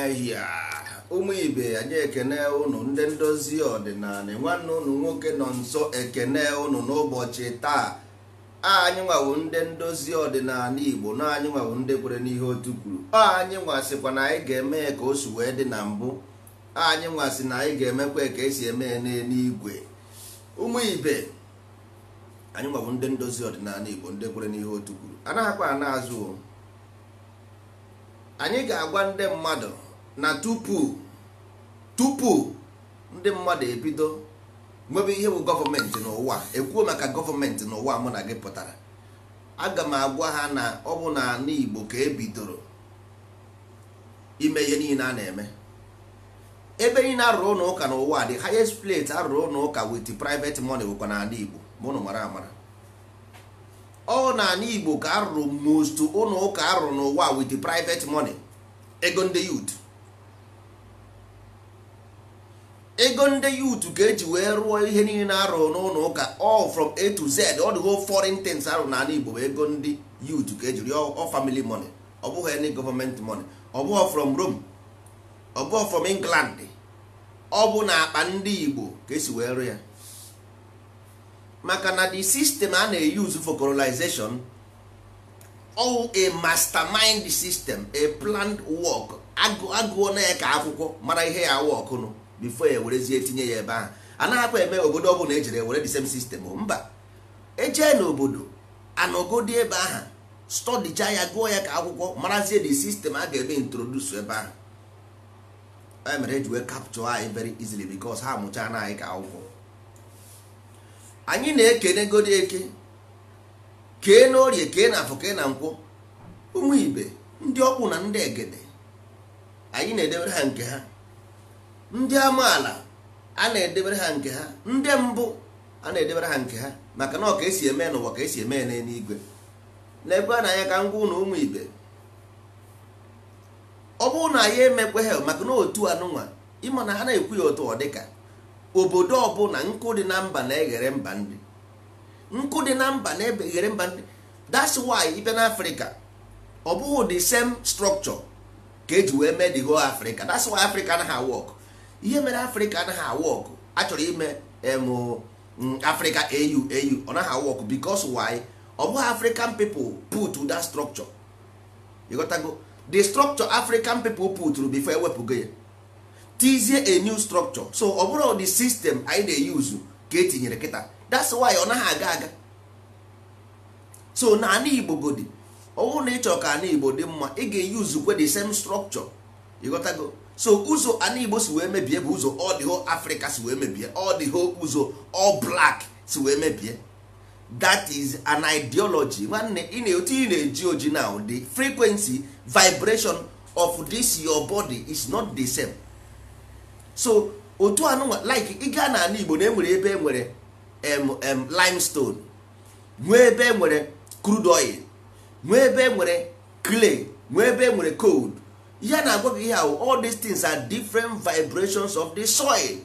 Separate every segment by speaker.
Speaker 1: ehia ụmụ ibe anyị ekene ụnụ ndị ndozi ọdịnala nwanne ụnụ nwoke nọ nso ekene ụnụ n'ụbọchị taa anyị nwawo ndị ndozi ọdịnala igbo na anyị nwawo ndị kwere n'ihe otu kwuru anyị nwasịkwa na anyị ga-eme ka o si wee dị na mbụ anyị nwasị na anyị ga-emekwa ka esi eme n'eluigwe ụmụ ibe anyị nwawo ndị ndozi ọdịnala igbo ndị kwere n'ihe otu kwuru anaghịkwa ana azụ anyị ga-agwa ndị mmadụ na tupu tupu ndị mmadụ ebido nwebe ihe bụ gọọmenti n'ụwa ekwuo maka gọọmenti n'ụwa mụ na gị pụtara aga m agwa ha na ọ bụ na ala Igbo ka ebidoro ime ihe niile a na-eme ebe niile arụrụ ụlọ ụka n'ụwa dị highest plate arụrụ ụlọ ụka wit private money bụkwa n'ala Igbo mụnụ mara amara ọ n'ala Igbo ka arụrụ most ụlọ ụka arụrụ n'ụwa wit private money ego ndị yut ego ndị yut ka eji wee rụọ ihe niile na-arụ n'ụlọ ụka all from a to z ọ dịgo foreign things arụ n'ala igbo ego ndị yut ka eji rịọ ọ family money ọ bụghị any government money ọ bụghị from rome ọ bụghị from england ọ bụ na akpa ndị igbo ka esi wee rụọ ya maka na the system a na-eyuzu for colonization all a mastermind system a planned work agụọ na ya ka akwụkwọ mara ihe ya wọk nụ before ya ewerezie tinye ya ebe ahụ anaghịkwa eme obodo ọbụla ejere ewere the same system mba ejee n'obodo anọgodi ebe ahụ stọdicha ya gụọ ya ka akwụkwọ marazie the system a ga-eme introduce ebe ahụ e mere eji wee capture anyị very easily because ha mụchaa na anyị ka akwụkwọ anyị na-ekene godi eke kee n'orie kee na afọ kee na nkwụ ụmụ ibe ndị ọkwụ na ndị egede anyị na-edebere ha nke ha ndị amaala a na-edebere ha nke ha ndị mbụ a na-edebere ha nke ha maka na ọ ka esi eme n'ụwa ka esi eme n'eluigwe n'ebe a na anya ka ngwa na ụmụ ibe ọ bụrụ na anyị emekwe ha maka na otu anụnwa ịma na ha na-ekwu ya otu ọ dịka obodo ọbụla nkụ dị na mba na-eghere mba ndị nkụ dị na mba na ebe ghere mba ndị that's why ibe na afrịka ọ bụghị the same structure ka eji wee mee the whole africa that's why africa anaghị work ihe mere africa anaghị work a chọrọ ime mm, africa au au ọ naghị work because why ọ bụghị african people put that structure ịghọtago the structure african people put before ewepụgo ya tizie a new structure so ọ bụrụ the system anyị na-eyuzu ka etinyere kịta that's why ọ naghị aga aga so na ana igbo godi ọwụ na ịchọ ka ana igbo dị mma ị ga-eyuzukwe the same structure ịghọtago so ụzọ ana igbo si wee mebie bụ ụzọ ọ dị africa si wee mebie ọ dị ụzọ ọ black si wee mebie that is an ideology nwanne ị na-etu ị na-eji oji now the frequency vibration of this your body is not the same so otu anụnwa like ị gaa na ana igbo na enwere ebe e nwere mm limestone nwee ebe e nwere crude oil nwee ebe e nwere clay nwee ebe e nwere cold ya na-agwa gị ihe ahụ all these things are different vibrations of the soil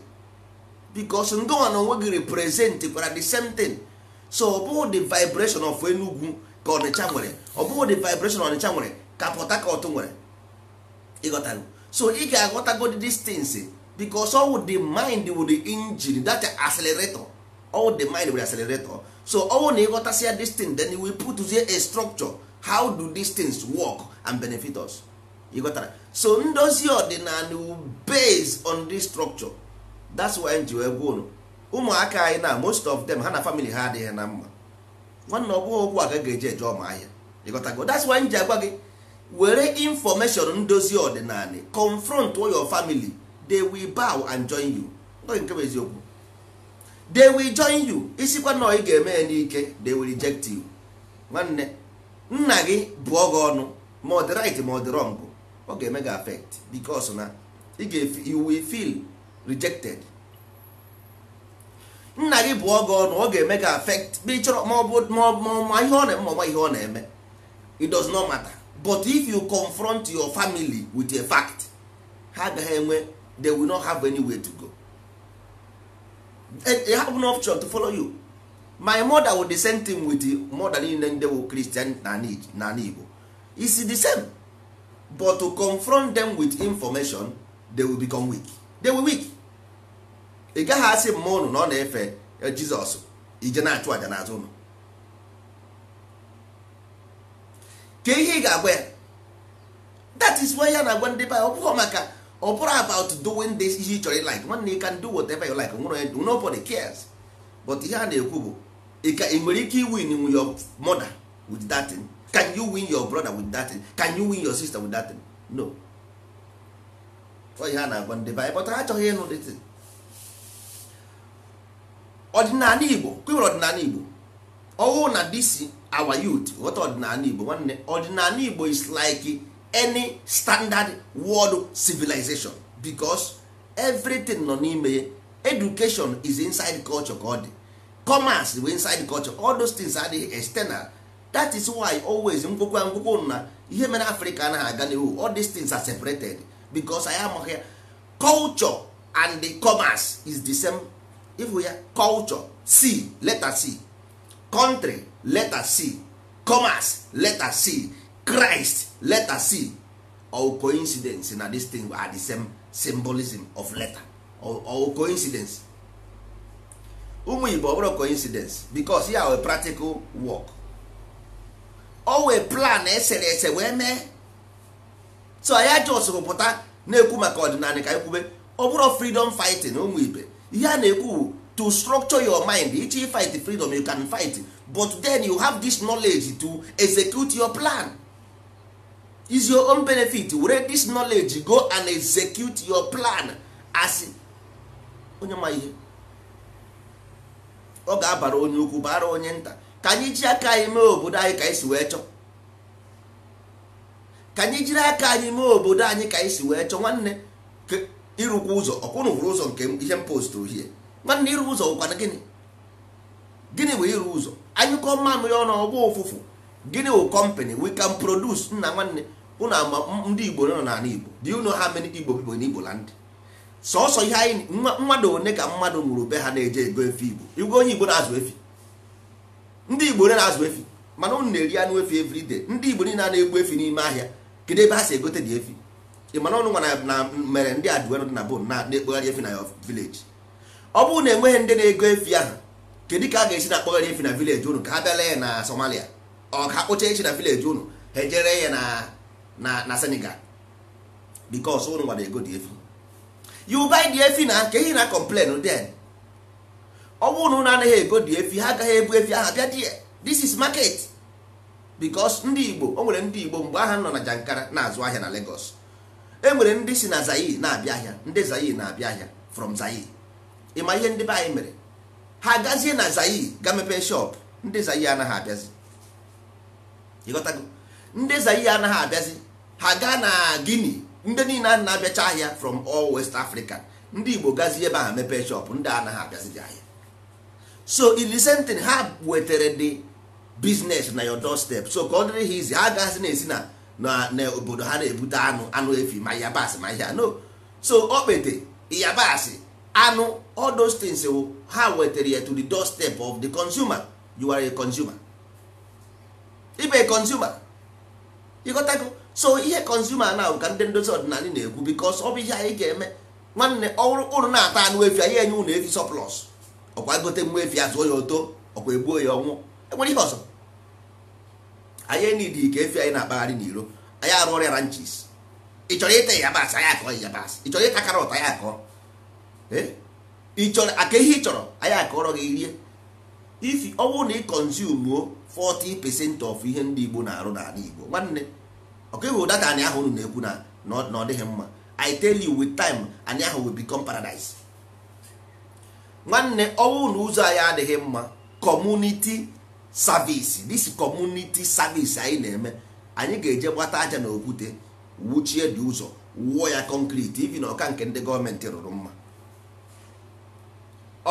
Speaker 1: because ngọnwa na onwe gị represent kwara the same thing so ọ bụghị the vibration of Enugu ka Ọnịcha nwere ọ bụghị the vibration Ọnịcha nwere ka Port Harcourt nwere ịghọtago so ị ga-aghọtago these things because ọ wụ the mind wụ the engine that accelerator all the mind with accelerator oh. so ọnwụ na ịghọtasịa this thing then we putzie a structure how do these things work and benefit us ịghọtara so ndozi ọdịnala base on this structure that's why nji wee gwụrụ ụmụaka anyị na most of them ha na family ha adịghị na mma nwanne ọ ọgwụ okwu aga ga-eji eje ọma ahịa ịghọtago that's why nji agwa gị were information ndozi ọdịnala confront your family they will bow and join you nke bụ eziokwu they will join you isikwa na ị ga-eme ya n'ike they will reject you nwanne nna gị bụọ gị ọnụ ma ọ dị right ma ọ dị wrong ọ ga-eme gị affect because na ị ga you will feel rejected nna gị bụọ gị ọnụ ọ ga-eme gị affect ma ị chọrọ ma ọ bụ ma ihe ọ na-eme ihe ọ na-eme it does not matter but if you confront your family with a fact ha agaghị enwe they will not have way to go they eh, have no option to follow you my mother would the same thing with the mother niile ndị bụ Christian na Igbo is the same but to confront them with information they will become weak they will weak ị gaghị asị mma ụnụ na ọ na-efe eh, Jizọs ije na-achụ aja n'azụ ụnụ ka ihe ị ga-agwa ya that is why ya na-agwa ndị baa ọ bụghị maka ọ bụrụ about doing this ihe ị chọrọ like nwanne you can do whatever you like nwere nobody cares but ihe a na-ekwu bụ ị nwere ike win with your mother with that can you win your brother with that can you win your sister with that no ihe a na-agwa ndị be anyị ha achọghị ịnụ dị ọdịnala Igbo kwewere ọdịnala Igbo ọhụụ na this our youth ghọta ọdịnala Igbo nwanne ọdịnala Igbo is like any standard world civilization because everything nọ n'ime ya education is inside culture ka ọ dị commerce wey inside culture all those things the external that is why always ngwụkwa ngwụkwa na ihe mere Africa anaghị aga n'ihu all these things are separated because anyị amaghị ya culture and the commerce is the same if ya culture c letter c country letter c commerce letter c Christ letter C or coincidence na this thing are the same symbolism of letter or, or coincidence ụmụ Igbo ọbụrụ coincidence because ya wee practical work o wee plan ese eh, eh, wee mee so ya jos rụpụta na-ekwu maka ọdịnala ka ekwube ọ bụrụ freedom fighting ụmụ eh, ibe ihe a na-ekwu to structure your mind ichi fight freedom you can fight but then you have this knowledge to execute your plan is your own benefit were this knowledge go and execute your plan as onye ma ihe ọ ga-abara onye ukwu bara onye nta ka anyị ji aka anyị mee obodo anyị ka anyị si wee chọọ ka anyị jiri aka anyị mee obodo anyị ka anyị si wee chọọ nwanne ịrụkwa ụzọ ọkwụnụ hụrụ ụzọ nke ihe m postụrụ hie nwanne iru ụzọ ụkwana gịnị gịnị bụ iru ụzọ anyụkọ mamịrị ọnụ ọgbọ ụfụfụ gịnị bụ kọmpanị we can produce nna nwanne unu ama ndị igbo nọ n'ala igbo do you know how many igbo people in igbo land sọsọ ihe anyị mmadụ one ka mmadụ nwụrụ be ha na-eje ego efi igbo igwe onye igbo na-azụ efi ndị igbo ole na-azụ efi mana ụnụ na-eri anụ efi every day ndị igbo niile na-egbu efi n'ime ahịa kedu ebe ha si egote dị efi ị mana ọnụ nwa na mere ndị adụwe dị na bon na ekpogharị efi na ya vileji ọ bụrụ na enweghị ndị na-ego efi ahụ kedu ka a ga-esi na-akpọgharị efi na vileji ụnụ ka ha bịala ya na somalia ọ ka kpụcha echi na vileji ụnụ ha ejere ya na na na Senegal because ụnụ nwere ego dị efu you buy dị efi na ka ehi na complain den ọ bụrụ na anaghị ego dị efi ha agaghị ebu efi aha bịa die this is market because ndị Igbo o nwere ndị Igbo mgbe aha nọ na Jankara na-azụ ahịa na Lagos e nwere ndị si na Zaire na-abịa ahịa ndị Zaire na-abịa ahịa from Zaire ịma ihe ndị be anyị mere ha gazie na Zaire ga mepee shop ndị Zaire anaghị abịazi ịghọtago ndị Zaire anaghị abịazi ha gaa na Guinea ndị niile a na-abịacha ahịa from all West Africa ndị Igbo gazi ebe ahụ mepee shop ndị anaghị abịazighị ahịa so ilisentin ha wetara dị biznes na your doorstep so ka ọ dịrị ha izi ha gasị na-esi na obodo ha na-ebute anụ anụ efi ma yabasị ma ihe no so okpete yabasị anụ all those things ha wetara ya to the doorstep of the consumer you are a consumer ibe consumer ịghọtago so ihe consumer na ka ndị ndozi ọdịnala na-ekwu because ọ bụ ihe anyị ga-eme nwanne ụrụ na-ata anụ efi anyị enye ụnụ efi surplus ọkwa gote nwa efi azụọ ya oto ọkwa egbuo ya ọnwụ enwere ihe ọzọ anyị enidi ka efi anyị na-akpagharị n'iro anyị arụ ọrịa ranches ị chọrọ ịta yabasị anyị akọọ yabasị ị chọrọ ịta karọt anyị akọọ ịchọrọ aka ihe ị chọrọ anyị akọrọ gị rie ifi ọnwụ na ị consume 40 percent of ihe ndị Igbo na-arụ n'ala Igbo nwanne okay hụ data anyị ahụ unu na-ekwu na ọ dịghị mma i tell you with time anyị ahụ will become paradise nwanne ọnwụ na ụzọ anyị adịghị mma community service this community service anyị na-eme anyị ga-eje gbata aja na okwute wuchie dị ụzọ wuo ya concrete ibi na ọka nke ndị gọọmenti rụrụ mma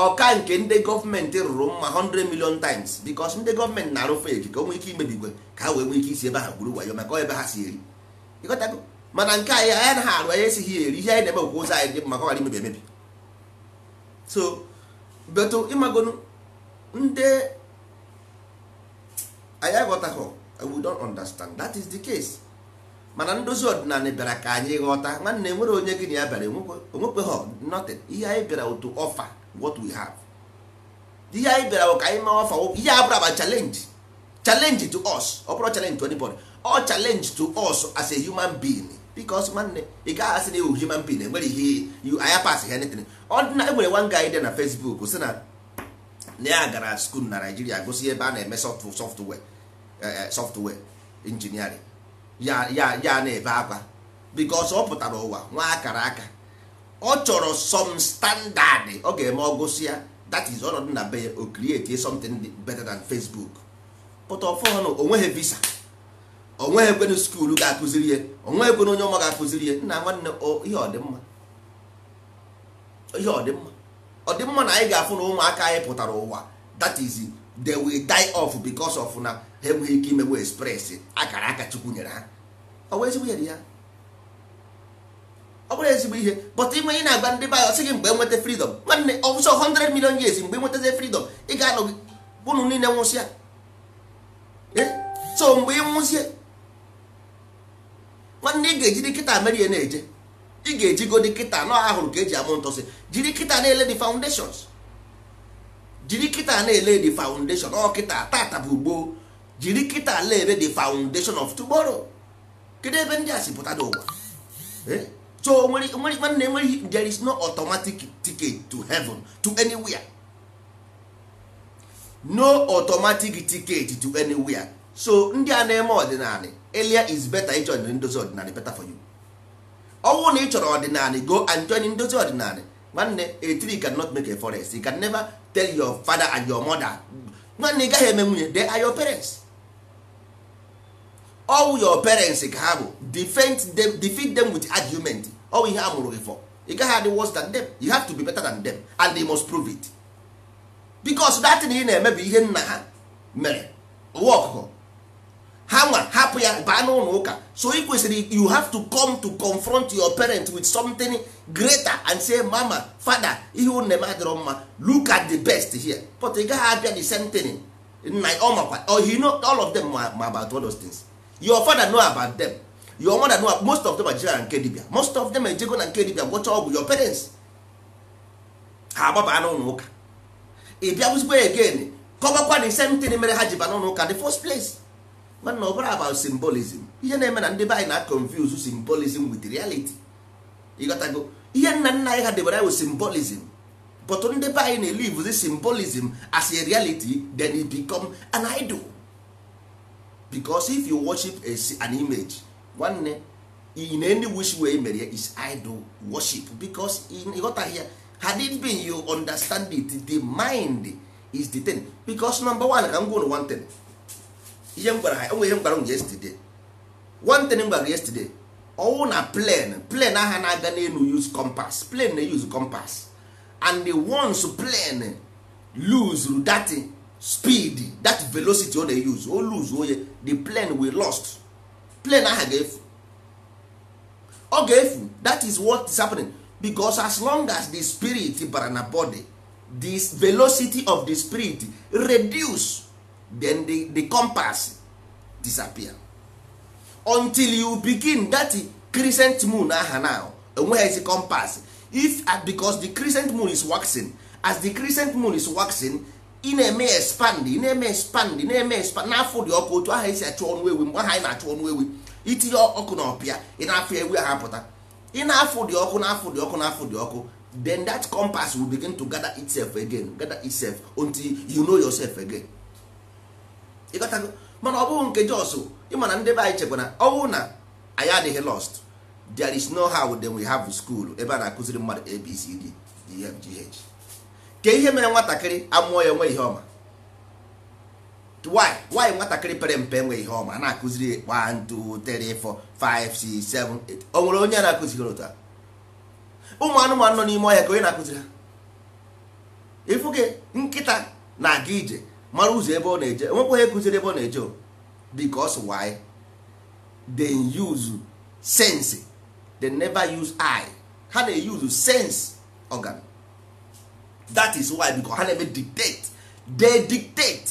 Speaker 1: ọka nke ndị gọọmenti rụrụ mma 100 million times because ndị gọọmenti na-arụ fake ka o nwee ike imebigwe ka ha wee nwee ike isi ebe ha gburu wayo maka ọ ebe ha si eri ịghọtago mana nke anyị anya naghị arụ anya esighị eri ihe anyị na-eme okwu ụzọ anyị dị maka ọghara imebi emebi so beto ịmagonu ndị anyị aghọtaghọ we don't understand that is the case mana ndozi ọdịnala bịara ka anyị ghọta nwanne nwere onye gị na ya bịara onwekweghọ nothing ihe anyị bịara otu ọfa what we have ihe anyị bịara bụ ka anyị mawa fawo ihe a bụrụ aba challenge challenge to us ọ bụrụ challenge to anybody ọ challenge to us as a human being because nwanne ị gaghị asị na ewu human being enwere ihe you anya pass ha anything ọ dị na enwere one guy dị na Facebook sị na na ya gara school na Naijiria gosi ebe a na-eme software eh, eh, software engineering ya ya ya na-ebe akwa because ọ pụtara ụwa nwa akara aka ọ chọrọ some standard ọ ga-eme ọgụsị ya that is ọnọdụ na be o create something better than Facebook but ọfọnụ onweghị visa onweghị ekwenu skuulu ga-akụziri ya onweghị ekwenu onye ọma ga-akụziri ya nna nwanne ihe ọdịmma ihe ọdịmma ọdịmma na anyị ga-afụ na ụmụaka anyị pụtara ụwa that is they will die off because of na ha enweghị ike imewe express akara aka chukwu nyere ha ọ wee ezigbo ya dị ya ọ bụrụ ezigbo ihe but ịnwe ị na-agba ndị bayo sị gị mgbe nweta freedom nwanne ọsọ 100 million years mgbe nwetazie freedom ị ga-anọ unu niile nwụsịa e? so mgbe ị nwụzie nwanne ị ga-eji dị kịta merie na-eje ị ga-ejigo dị kịta nọ ahụrụ ka eji amụ ntọsị jiri kịta na-ele dị foundations jiri kịta na-ele dị foundation ọ kịta tata bụ gboo jiri kịta na-ele dị foundation of tomorrow kedu ebe ndị a si pụta n'ụwa e? so nwere nwanne enweghị there is no automatic ticket to heaven to anywhere no automatic ticket to anywhere so ndị a na-eme ọdịnala elia is better ịchọ ndozi ọdịnala better for you ọnwụ na ị chọrọ ọdịnala go and join ndozi ọdịnala nwanne a tree cannot make a forest you can never tell your father and your mother nwanne ị gaghị eme nwunye they are your parents all your parents ka ha bụ defend them defeat them with argument ọwụ ihe a mụrụ gị for ị gaghị adị worse than dem you have to be better than dem and they must prove it because dat thing ị na-eme bụ ihe nna ha mere ụwa ọkụkọ ha nwa hapụ ya baa n'ụlọ ụka so ị kwesịrị you have to come to confront your parent with something greater and say mama father ihe unu na-eme adịrọ mma look at the best here but ị gaghị abịa the same thing nna ọ makwa all of them ma about all those things your father know about them your mother know most of them ejela na nke dibia most of them ejego na nke dibia gwọcha ọgwụ your parents ha agbaba n'ụlọ ụka ị bịa bụzikwa again kọbakwa the same thing mere ha ji ba n'ụlọ ụka the first place mana ọ bụrụ about symbolism ihe na-eme na ndị be anyị na confuse symbolism with reality ịghọtago ihe nna nna anyị ha debere anyị symbolism but ndị be anyị na-elive the symbolism as a reality then it become an idol because if you worship an image nwanne in any wey way mere is idol worship because ịghọtaghị ya had it been you understand it the mind is the thing because number one ka m gwa one thing ihe m gwara ha enwe ihe m gwara m yesterday one thing m gwara yesterday ọwụ na plane plane agha na-aga n'elu use compass plane na-use compass and the once plane lose that speed that velocity ọ na-use o lose oye oh, the plane we lost plane aha ga-efu ọ ga-efu that is what is happening because as long as the spirit bara na body the velocity of the spirit reduce then the, the compass disappear until you begin that crescent moon aha now enweghịzi compass if uh, because the crescent moon is waxing as the crescent moon is waxing ị na-eme expand ị na-eme expand na-eme expand n'afọ dị ọkụ otu aha esi achụ ọnụ ewu mgbe aha anyị na-achụ ọnụ ewu itinye ọkụ na ọpịa ị na-afụ ewu ha pụta ị na-afụ dị ọkụ na-afụ dị ọkụ na-afụ dị ọkụ then that compass will begin to gather itself again gather itself until you know yourself again ịgotago mana ọ bụghị nke jos ịma na ndị be anyị chekwa ọnwụ na anyị adịghị lost there is no how then we have school ebe a na-akụziri mmadụ abcd dfgh e ka ihe mere nwatakịrị amụọ ya nwe ihe ọma why why nwatakịrị pere mpe nwe ihe ọma na-akụziri 1 2 3 4 5 6 7 8 o nwere onye na-akụziri otu a ụmụ anụmanụ nọ n'ime ọhịa ka onye na-akụziri ha ịfụ nkịta na-aga ije mara ụzọ ebe ọ na-eje enwekwa onye kụziri ebe ọ na-eje because why they use sense they never use eye ha na-eyuzu sense organ that is why because ha na-eme dictate they dictate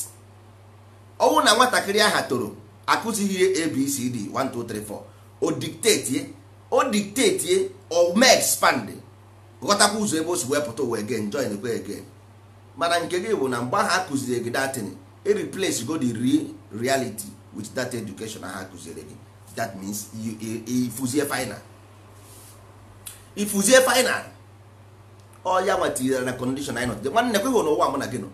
Speaker 1: ọnwụ na nwatakịrị aha toro akụzighị abcd 1234 o dictate o dictate o mee expand ghọtakwa ụzọ ebe o si wepụta uwe gen join ekwe again mana nke gị bụ na mgbe ahụ akụziri gị datin e replace go the real reality with that education ha akụziri gị that means ifuzie final ifuzie final ọya nwa tinyere na condition anyị nọdụ nwanne kweghị n'ụwa mụ na gị nọ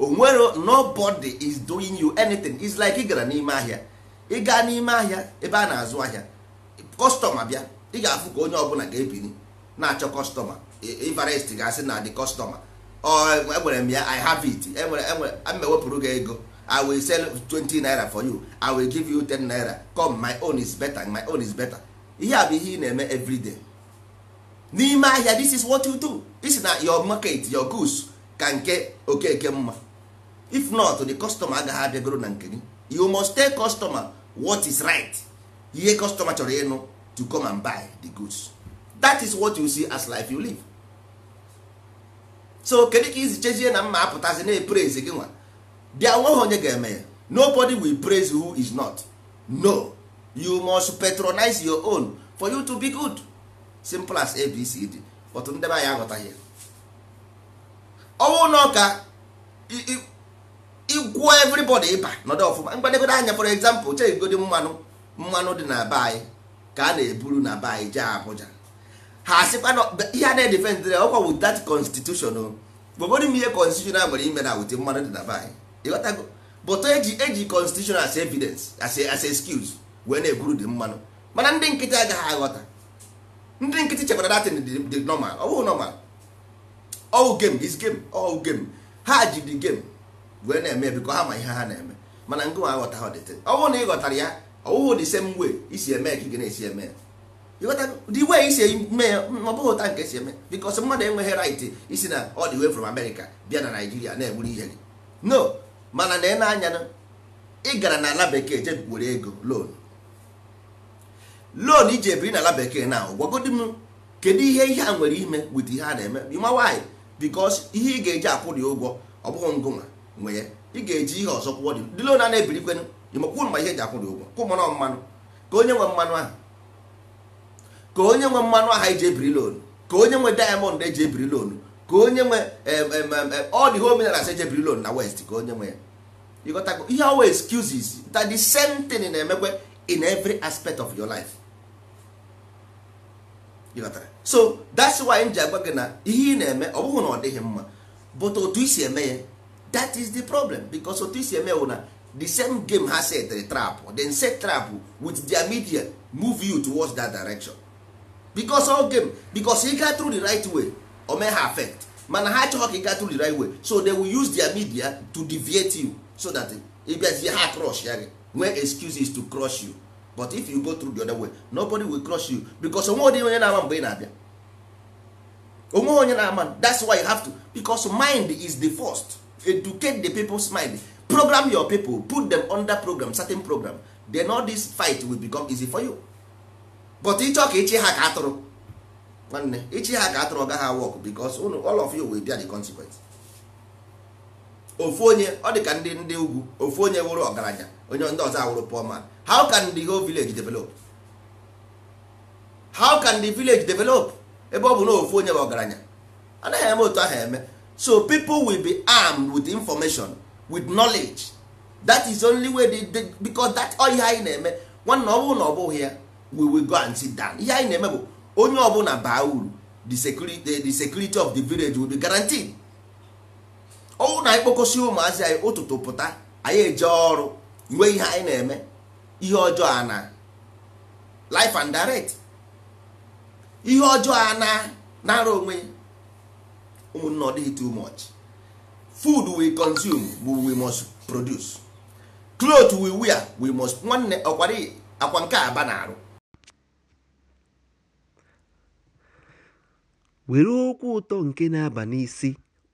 Speaker 1: onwere nobody is doing you anything is like ị gara n'ime ahịa ị gaa n'ime ahịa ebe a na-azụ ahịa kọstọma bịa ị ga-afụ ka onye ọbụla ga-ebiri na-achọ kọstọma ivarest ga-asị na dị kọstọma enwere m ya i have it enwere enwere m ewepụrụ gị ego i will sell 20 naira for you i will give you 10 naira come my own is better my own is better ihe a bụ ihe ị na-eme everyday n'ime ahịa this is what you do isi na your market your goods ka nke okeke mma if not the customer agaghị abịagoro na nke gị you must tell customer what is right ihe customer chọrọ ịnụ to come and buy the goods that is what you see as life you live so kedu ka izi chezie na mma apụtazi na epraise gị nwa bịa nweghị onye ga-eme ya nobody will praise who is not no you must patronize your own for you to be good simple as abcd otu ndị be anyị aghọtaghị ọnwụ na ọka igwuo everybody ịba nọdụ ọfụma mgbadegodo anya for example chegodị mmanụ mmanụ dị na be anyị ka a na-eburu na be anyị jee Abuja ha asịkwa ihe a na-edefendịrị ọkwa wụ that constitution gbogodo m ihe constitution a nwere ime na wụdị mmanụ dị na be anyị ịghọtago bụtụ eji eji constitution as evidence as excuse wee na-eburu dị mmanụ mana ndị nkịtị agaghị aghọta ndị nkịtị chekwara datin dị normal ọwụ normal ọwụ game is game ọwụ game ha ji dị game wee na-eme bikọ ha ma ihe ha na-eme mana ngị aghọta ha dịtị ọ bụrụ na ị ghọtara ya ọwụghụ dị same way isi eme ka ị ga na-esi eme dị wee isi eme ọ bụghị ụta nke esi eme because mmadụ enweghị right isi na ọ dị way from America bịa na Nigeria na-egburu ihe gị no mana na ị na-anya ị gara na ala bekee ego loan iji ebiri n'ala bekee na gwagodi m kedu ihe ihe a nwere ime wit ihe a na-eme ịma nwaanyị bikos ihe ị ga-eji akwụ dị ụgwọ ọ bụghị ngụnwa nwe ya ị ga-eji ihe ọzọ kwụọ dị ndị loan a na-ebirikwenụ ebiri ịmakwụ ma ihe eji akwụ dị ụgwọ kwụ mmanụ mmanụ ka onye nwe mmanụ ahụ ka onye nwe mmanụ ahụ eji ebiri loan ka onye nwe diamond eji ebiri loan ka onye nwe ọ dị omenala eji ebiri loan na west ka onye nwe ya ịghọtago ihe awa excuses that the same thing na-emekwe in every aspect of your life so that's why m ji agwa gị na ihe ị na-eme ọ bụghị na ọ dịghị mma but otu isi eme ya that is the problem because otu isi eme wụ na the same game ha setere trap then set trap with their media move you towards that direction because all game because ị gaa through the right way o mee ha affect mana ha achọghị ka ị gaa through the right way so they will use their media to deviate you so that ịbịazie ha crush ya gị nwee excuses to crush you but if you go through the other way nobody will crush you because onwe onye na-ama mgbe ị na-abịa onwe onye na-ama that's why you have to because mind is the first educate the people's mind program your people put them under program certain program then all this fight will become easy for you but ịchọ ka ịchị ha ka atụrụ nwanne ịchị ha ka atụrụ gaghị work because all of you will bear the consequence ofu onye ọ dị ka ndị ndị ugwu ofu onye wụrụ ọgaranya onye ndị ọzọ awụrụ poor man how can the whole village develop how can the village develop ebe ọ bụ na ofu onye bụ ọgaranya anaghị eme otu ahụ eme so people will be armed with information with knowledge that is only way they, they, because that all ihe anyị na-eme nwanna ọ na ọ bụghị ya we will go and sit down ihe anyị na-eme bụ onye ọbụla baa uru the security, the security of the village will be guaranteed ọnwụ na anyị kpokọsi ụmụazị anyị ụtụtụ pụta anyị eje ọrụ nwee ihe anyị na-eme ihe ọjọọ a na life and direct ihe ọjọọ a na nara onwe ụmụnne ọ dịghị too much food we consume we must produce cloth we wear we must nwanne ọkwari akwa nke aba na-arụ
Speaker 2: were okwu ụtọ nke na-aba n'isi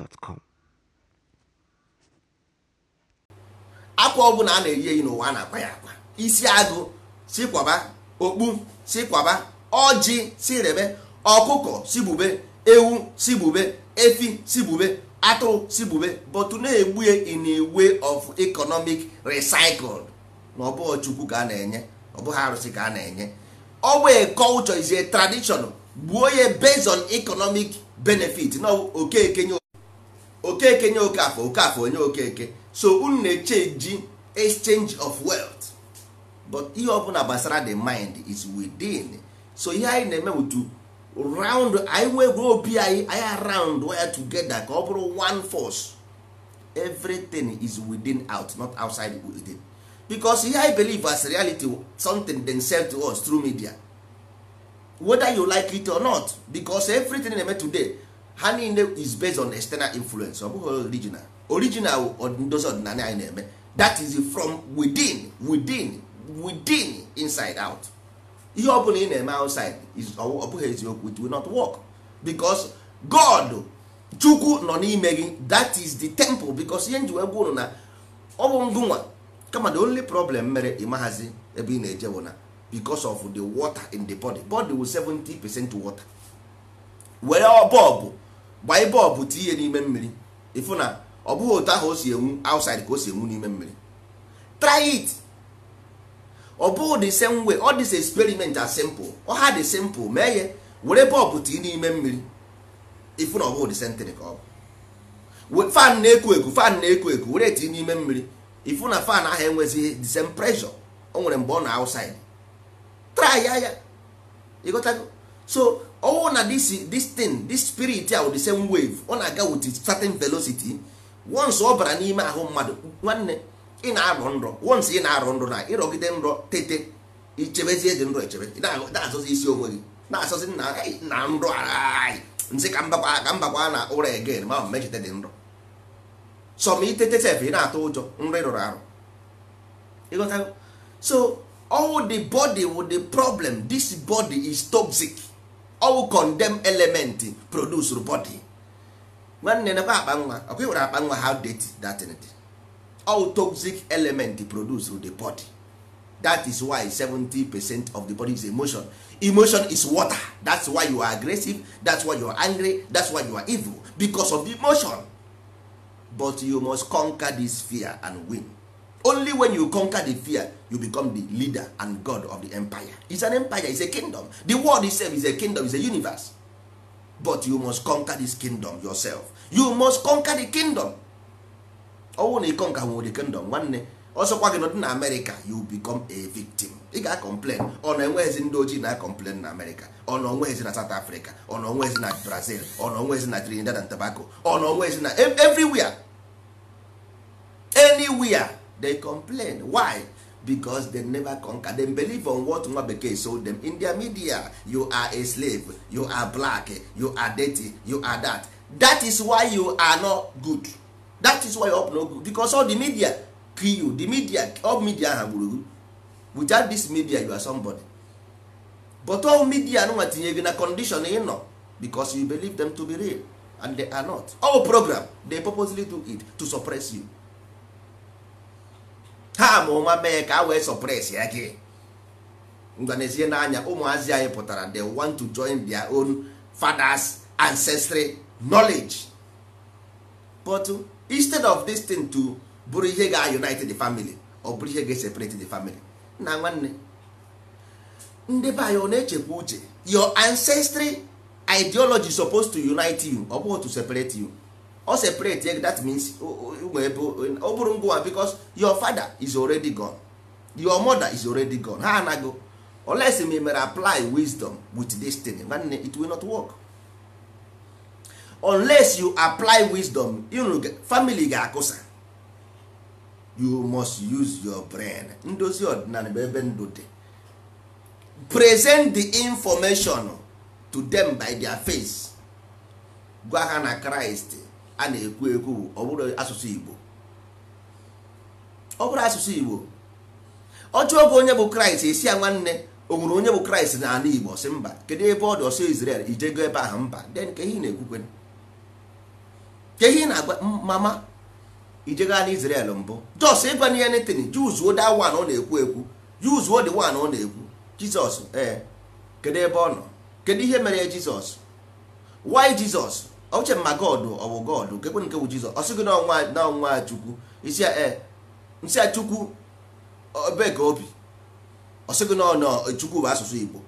Speaker 2: gmail.com
Speaker 1: akwa ọbụla a na-eyi eyi n'ụwa a na-akpa ya akpa isi agụ si kwaba okpu si kwaba ọjị si rebe ọkụkọ si bube ewu si bube efi si bube atụrụ si bube but na-egbu in a way of economic recycle na ọ bụghị chukwu ka a na-enye ọ bụghị arụsị ka a na-enye ọwa bụ culture is a tradition gbuo ya based on economic benefit na okeke nye okeke nye okafọ okafọ onye okeke so unu na-echenji exchange of wealth but ihe ọbụla gbasara the mind is within so ihe anyị na-eme wutu round anyị nwee gwuo obi anyị anyị around waya together ka ọ bụrụ one force everything is within out not outside within because ihe I believe as reality something then sef to us through media whether you like it or not because everything na-eme today ha niile is based on external influence ọ bụghị original original ndozi ọdịnala anyị na-eme that is from within within within inside out ihe ọ bụla ị na-eme outside ọ bụghị eziokwu it will not work because God chukwu nọ n'ime gị that is the temple because ihe nji wee gwa ụnụ na ọ bụ ngụnwa kama the only problem mere ịmaghazi ebe ị na-eje bụ na because of the water in the body body will 70 percent water were bọbụ gbanye bọlbụ tinye n'ime mmiri ịfụ na ọ bụghị otu ahụ o si enwu outside ka o si enwu n'ime mmiri try it ọ bụghị the same way all this experiment are simple ọ ha dị simple mee ya were bọlbụ tii n'ime mmiri ịfụ na ọ bụghị the ka ọ bụ fan na-eku eku fan na-eku eku were tinye n'ime mmiri ịfụ na fan ahụ enweghịzi the same pressure o nwere mgbe ọ na outside try ya ya ịghọtago so ọnwụ na this thing this spirit a the same wave ọ na-aga with certain velocity once ọ bara n'ime ahụ mmadụ nwanne ị na-arọ nrọ once ị na-arọ nrọ na ịrọgide nrọ tete ichebezie dị nrọ echebe na-asọzi isi onwe gị na-asọzi na nrọ nsị ka mbakwa na ụra egen ma mechite dị nrọ sọm itete sef ị na-atụ ụjọ nrọ ị rụrụ arụ so all the body with the problem this body is toxic all condemn element produce body nwanne nakwa akpa nwa ọkwa ịwere akpa nwa how dirty that thing all toxic element produce the body that is why 70 percent of the body is emotion emotion is water that's why you are aggressive that's why you are angry that's why you are evil because of emotion but you must conquer this fear and win only when you conquer the fear you become the leader and god of the empire is an empire is a kingdom the world itself is a kingdom is a universe but you must conquer this kingdom yourself you must conquer the kingdom ọnwụ na ịkọnka nwere the kingdom nwanne ọsọkwa gị nọdị na amerịka you become a victim ị ga complain ọ na enweghịzi ndị ojii na complain na America. ọ na onweghịzi na south africa ọ na onweghịzi na brazil ọ na onweghịzi na trinidad and tobago ọ na onweghịzi na everywhere anywhere they complain why because they never conquer them believe on what nwa bekee sold them in their media you are a slave you are black you are dirty you are that that is why you are not good that is why you are not good because all the media kill you the media all media ha gburu without this media you are somebody but all media nwa tinye gị na condition ị nọ because you believe them to be real and they are not all program they purposely do it to suppress you ha ma ụma mee ka a wee sọpres ya gị ngwanezie n'anya ụmụazị anyị pụtara the want to join their own fathers ancestry knowledge but instead of this thing to bụrụ ihe ga-unite the family ọ bụrụ ihe ga-separate the family na nwanne ndị be anyị ọ na-echekwa uche your ancestry ideology supposed to unite you ọ bụghị to separate you ọ separate that means ọ bụrụ ngwa because your father is already gone your mother is already gone ha anago unless me mere apply wisdom with this thing nwanne it will not work unless you apply wisdom family ga-akụsa you must use your brain ndozi ọdịnala bụ ebe ndụ dị present the information to them by their face gwa ha na Christ a na-ekwu ekwu ọ bụrụ asụsụ Igbo ọ bụrụ asụsụ Igbo ọjọọ oge onye bụ Kraịst esi ya nwanne o nwere onye bụ Kraịst n'ala Igbo si mba kedu ebe ọ dị ọsọ Izrel ijego ebe ahụ mba den ka na-ekwukwe ka ihe na-agwa mama ijego ala Izrel mbụ jos ịgwa na ihe netin juzuo da wan ọ na-ekwu ekwu juzuo dị wan ọ na-ekwu Jizọs ee eh, kedu ebe ọ nọ kedu ihe mere Jizọs why Jizọs uche ma god ọ bụ god nkekwe nke bụ jizọs ọ na ọnwa chukwu isi nsị e, a chukwu ebe ka obi ọ na ọnọ e, chukwu bụ asụsụ igbo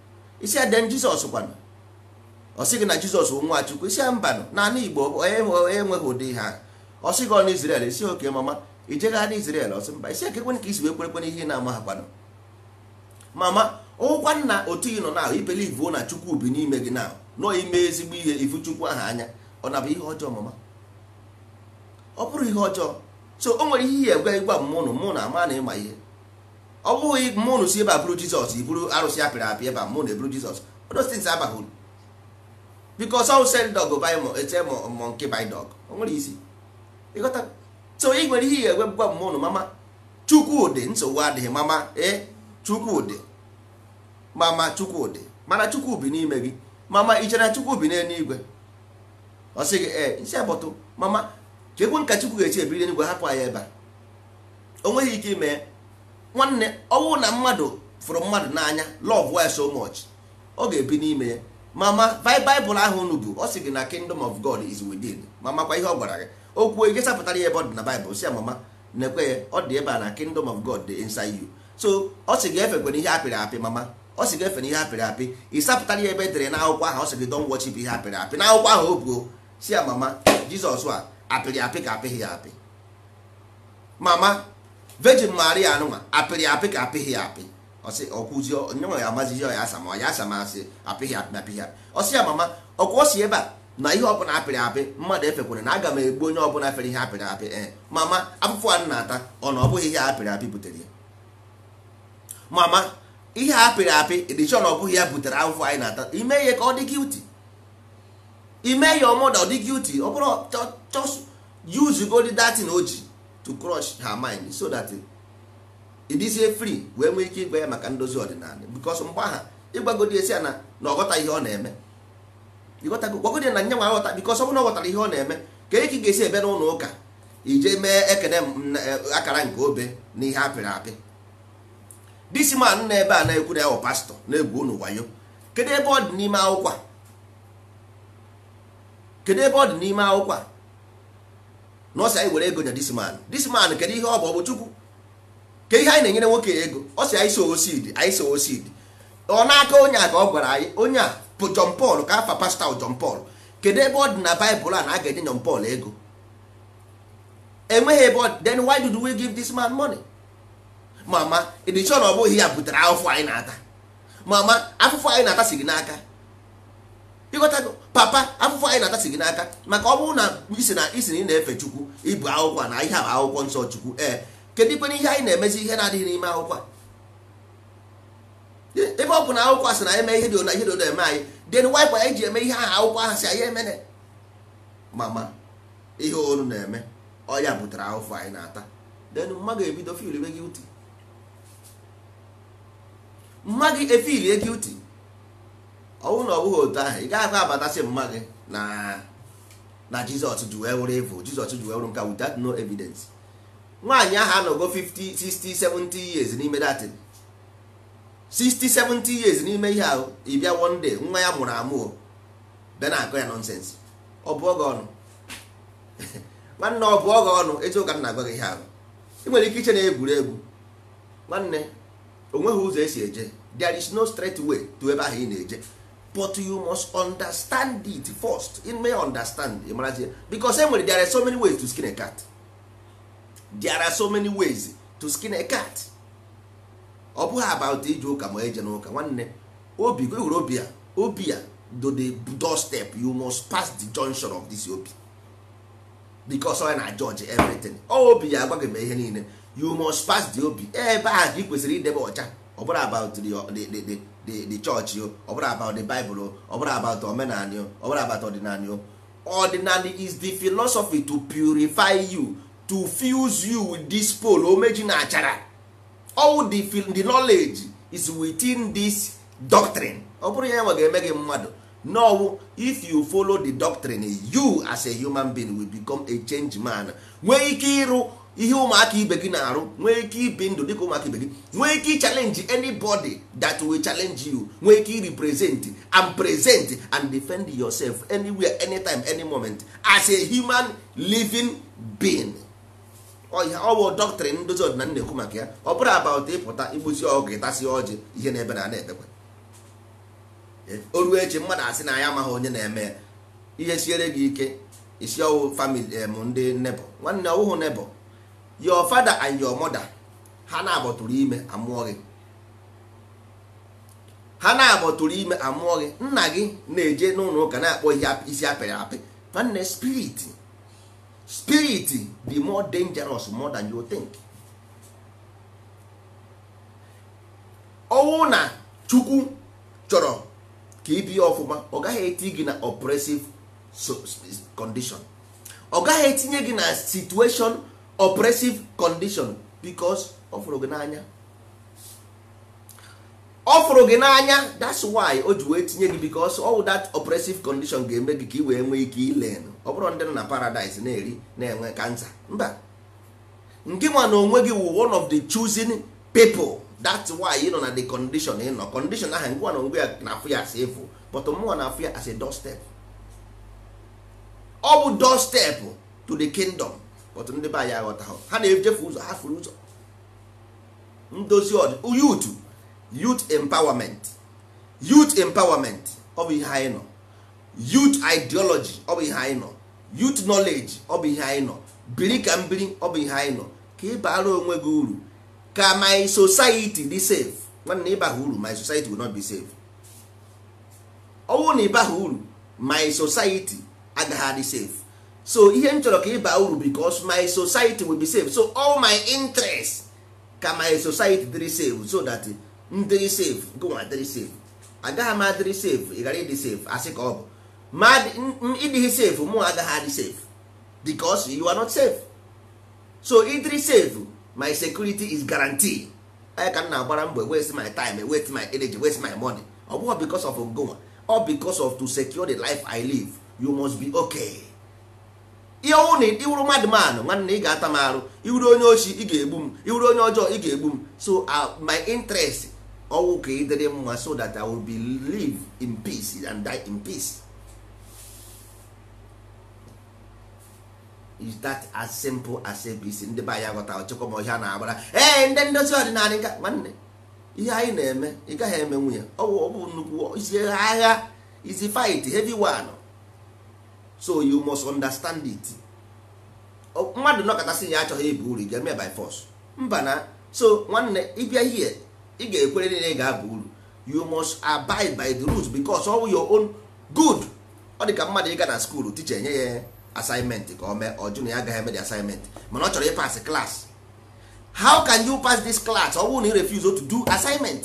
Speaker 1: isi a den jizọs kwanụ ọ na jizọs bụ nwa chukwu isi a mbanụ naanị igbo e, enweghị ụdị ihe ọ sị gị ọnụ izrel isi oke mama ijegha na izrel ọsị mba isi ekekwe ka isi wee kwerekwe ihe na-ama ha kwanụ mama ụkwa nna otu ị nọ na ahụ ibelivu na chukwu bi n'ime gị na nọ ime ezigbo ihe ifu chukwu aha anya ọ na bụ ihe ọjọọ mama ọ bụrụ ihe ọjọọ so o nwere ihe ihe egwe gwa mmụnụ mụ na ama na ịma ihe ọ bụghị mmụnụ si ebe a bụrụ jizọs iburu arụsị apịrị apị ebe mụ na eburu jizọs odostins abaghị uru bikos ọ sel dog ete mọ nke by dog o nwere isi ịghọta so ị nwere ihe egwe gwa mmụnụ mama chukwudị nsogbu adịghị mama e chukwudị mama chukwudị mana chukwu bi n'ime gị mama ichere chukwu bi n'eluigwe ọ sị gị ee eh, isi agbọtụ mama chekwe nka chukwu ga-echi ebiri enugwe hapụ anyị ebe a o nweghị ike ime nwanne ọnwụ na mmadụ fụrụ mmadụ n'anya lọv ya so much ọ ga-ebi n'ime ya mama baịbụl ahụ unu bụ ọ sị gị na kingdom of god is within ma makwa ihe ọ gwara gị okwu ike sapụtara ya ebe ọ dị na baịbụl si ya mama na-ekwe ya ọ dị ebe a na kingdom of god dị inside you so ọ sị gị efekwana ihe apịrị apị mama ọ sị gị efe na ihe apịrị apị ị sapụtara ya ebe edere n'akwụkwọ ahụ ọ sị gị don wọchi ihe apịrị apị n'akwụkwọ ahụ o buo si ya mama jizọs a apịrị apị ka apịghị ya apị mama vejin maria anụnwa apịrị apị ka apịghị ya apị ọsị ọkwụzi nyenwe ya amazizi ya asam ọ ya asam asị apịghị apị apịghị apị ọsị ya mama ọkwa ọsị ebe a na ihe ọbụla apịrị apị mmadụ efekwere na aga m egbu onye ọbụla fere ihe apịrị apị ee eh. mama afụfụ a na-ata ọ na ọ bụghị ihe apịrị apị butere ya mama ihe apịrị apị edichọn ọ bụghị ya butere afụfụ anyị na-ata ime ihe ka ọ dị gilti ime ya mother ọ dị guilty ọ bụrụ just use gold datin o ji to crush her mind so that ịdịzie eh, free wee nwee ike ịgwa ya maka ndozi ọdịnala because mgbe aha ịgbagodi esi ya na na ọghọta ihe ọ na-eme gwagodi na nye nwa aghọta because ọ bụrụ na ọghọtara ihe ọ na-eme ka eke ga-esi ebe n'ụlọ ụka ije mee ekene e, akara nke obe na ihe apịrị apị disi man na ebe a na-ekwu na ya bụ pastọ na-egwu unu wayo kedu ebe ọ dị n'ime akwụkwọ kedu ebe ọ dị n'ime akwụkwọ a na ọsị anyị were ego nye disman disman kedu ihe ọ bụ ọ bụ chukwu ke ihe anyị na-enyere nwoke ego ọ sị anyị sowo seed anyị sowo seed ọ n'aka onye a ka ọ gwara anyị onye a bụ jon pal ka afa pasta John pal kedu ebe ọ dị na baịbụl a na a ga-enye John ego enweghị ebe then why did we give this man money mama edichon ọ bụghị ya butere afụfụ anyị na-ata mama afụfụ anyị na-ata si gị n'aka ịghọtago papa afụfụ anyị na-atasi gị n'aka maka ọ bụrụ na isi na isi na ị na-efe chukwu ibu akwụkwọ na ihe bụ akwụkwọ nsọ chukwu ee kedu ikpere ihe anyị na-emezi ihe na-adịghị n'ime akwụkwọ e, ebe ọ bụ na akwụkwọ asị na eme ihe dị ona ihe dị na eme anyị den waịpa anyị ji eme ihe aha akwụkwọ aha si anyị emene mama ihe onu na-eme ọya butere ahụfụ anyị na-ata den mma ebido fil gị uti mma gị uti ọnwụ na ọ bụghị otu ahụ ị gaghị abatasị mma gị na na jizọs ji wee wụrụ jizọs ji wee wụrụ nke without no evidence nwaanyị ahụ anọgo 50 60 70 years n'ime datin 60 70 years n'ime ihe ahụ ị bịa one day nwa ya mụrụ amụọ bịa na-akọ ya nọnsensị ọ bụ oge ọnụ nwanne ọ bụ oge ọnụ eziụka ụka na-agwa gị ihe ahụ ị nwere ike iche na egwuregwu nwanne o ụzọ esi eje there is no straight way to ebe ahụ ị na-eje but you must understand it first in may understand imarazie because nwere there are so many ways to skin a cat there are so many ways to skin a cat ọ bụghị about ije ụka ma eje n'ụka nwanne obi gwewere obi ya obi ya do the step you must pass the junction of this obi because ọ na judge everything ọ obi ya agwaghị m ihe niile you must pass the obi ebe a ka ị kwesịrị idebe ọcha ọ bụrụ about the, the, the, the the church o ọ about the bible o ọ bụrụ about omenani o ọ bụrụ about ordinary o ordinary is the philosophy to purify you to fuse you with this pole omeji na achara all the, the knowledge is within this doctrine ọ bụrụ ya e ga-eme gị mmadụ no if you follow the doctrine you as a human being will become a change man nwee ike ịrụ ihe ụmụaka ibe gị na-arụ nwee ike ibi ndụ dịka ụmụaka ibe gị nwee ike chalenji anybody that will challenge you nwee ike represent and present and defend yourself anywhere anytime any moment as a human living being ọ bụ doctrine ndozi ọdịnala na-ekwu maka ya ọ bụrụ about ịpụta igbuzi ọgụ ịtasi ọjị ihe na-ebe na na-ebekwa e, o mmadụ asị na ya amaghị onye na-eme ya ihe siere gị ike isi ọwụ famili ndị nebo nwanne ọwụhụ nebo your father and your mother ha na-agbọtụrụ ime amụọ gị ha na-agbọtụrụ ime amụọ gị nna gị na-eje n'ụlọ ụka na-akpọ ihe isi apịrị apị nwanne spirit spirit dị more dangerous more than you think ọnwụ na chukwu chọrọ ka ibi ọfụma ọ gaghị eti gị na oppressive condition ọ gaghị etinye gị na situation oppressive condition because ọ fụrụ gị n'anya ọ fụrụ gị n'anya that's why o ji wee tinye gị because all that oppressive condition ga-eme gị ka ị wee nwee ike ilen ọ bụrụ ndị nọ na paradise na-eri na-enwe kansa mba nke nwa na onwe gị wụ one of the choosing people that's why ị nọ na the condition ị nọ condition ahụ ngwa na onwe ya na-afụ ya as efu but mụnwa na-afụ ya as a doorstep ọ bụ doorstep to the kingdom ọtụ ndị be anyị aghọtaghọ ha na-echefu ụzọ ha furu ụzọ ndozi ọdị youth youth empowerment youth empowerment ọ ihe anyị nọ youth ideology ọ ihe anyị nọ youth knowledge ọ ihe anyị nọ biri ka mbiri ọ ihe anyị nọ ka ị bara onwe gị uru ka my society dị safe nwanne ịbaha uru my society will not be safe ọ na ịbaha uru my society agaghị adị safe so ihe m chọrọ ka baa uru because my society will be safe so all my interest ka my society dịrị safe so that m dịrị safe gụnwa dịrị safe agaghị m adịrị safe ị ghara ịdị safe asị ka ọ bụ ma ịdịghị safe mụ agaghị adị safe because you are not safe so ịdịrị safe my security is guarantee. anyị ka m na-agbara mbọ waste my time waste my energy waste my money ọ bụghị because of ngonwa ọ because of to secure the life I live you must be okay. ihe ọnwụ na ịwụrụ madman nwanne ị ga-ata m arụ iwuru onye ochi ị ga-egbu m iwuru onye ọjọọ ị ga-egbu m so uh, my interest ọwụ ka ị dịrị mma so that I will be live in peace and die in peace is that as simple as abc ndị be anyị aghọta ọchịkọ ma ọhịa na-agbara ee ndị ndozi ọdịnala nka nwanne ihe anyị na-eme ị gaghị eme nwunye ọwụ ọ bụ nnukwu isi agha isi fight heavy one so you must understand it oh, mmadụ nọkọtasị ya achọghị bu uru ga-eme by force mba na so nwanne ịbịa ihe ị ga-ekwere ị ga abụ uru you must abide by the rules because all your own good ọ dị ka mmadụ ịga na skuul ticha nye ya assignment ka o mee ọ na ya agaghị eme di assignment mana ọ chọrọ ịpas class how can you pass this class ọ bụrụ na ị refuse to do assignment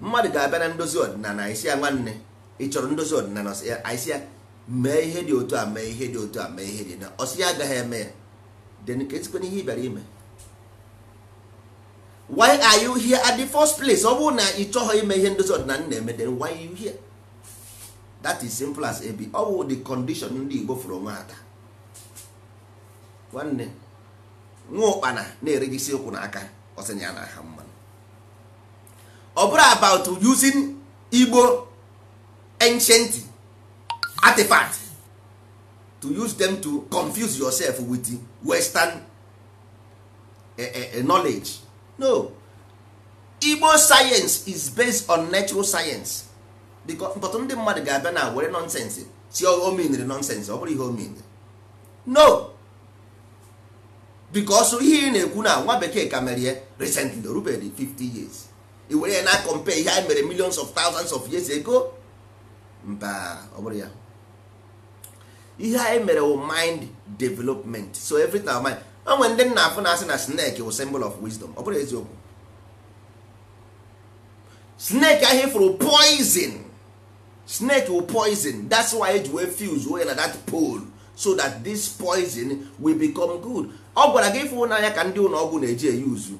Speaker 1: mmadụ ga-abịa na ndozi ọdịnala isi ya nwanne ị chọrọ ndozi ọdịnala anyị ya mee ihe dị otu a mee ihe dị otu a mee ihe dị na ọsị ya agaghị eme ya then ka esikwana ihe ị bịara ime why are you here at the first place ọ bụrụ na ị chọghọ ime ihe ndozi ọdịnala na-eme then why are you here that is simple as ebi ọ bụ the condition ndị igbo fụrụ onwe ha taa nwanne nwa ụkpana na-eregisi okwu n'aka ọsịnya na aha mmanụ ọ bụrụ about using igbo ancient artifact to use them to confuse yourself with western eh, eh, eh, knowledge no igbo science is based on natural science because but ndị mmadụ ga-abịa na were nonsense si omenere nonsense ọ bụrụ ihe omenere no because ihe ị na-ekwu na nwa bekee ka mere ya recently o 50 years i were ya na compare ihe anyị mere millions of thousands of years ago mba ọ bụrụ ya ihe anyị e mere wụ mind development so every time mind o nwere ndị nna afụ na-asị na snake wụ symbol of wisdom ọ bụrụ eziokwu snake ahụ fụrụ poison snake wụ poison that's why eji wee fuse wee na that pole so that this poison will become good ọ gwara gị ịfụ n'anya ka ndị ụlọ ọgwụ na-eji eyuzu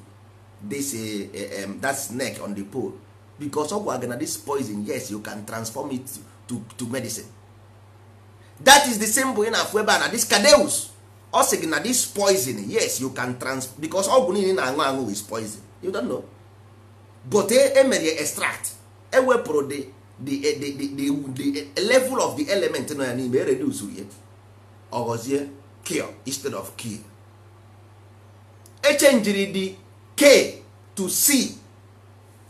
Speaker 1: this eh, eh, that snake on the pole because ọ gwara gị na this poison yes you can transform it to, to medicine that is the same ị na-afụ ebe a na this cadeus ọ sị gị na this poison yes you can trans because ọgwụ niile na-aṅụ aṅụ is poison you don't know but emere e extract ewepụrụ the the the the the level of the element nọ ya n'ime e ya ọ ghọzie kill instead of kill echenjiri the k to c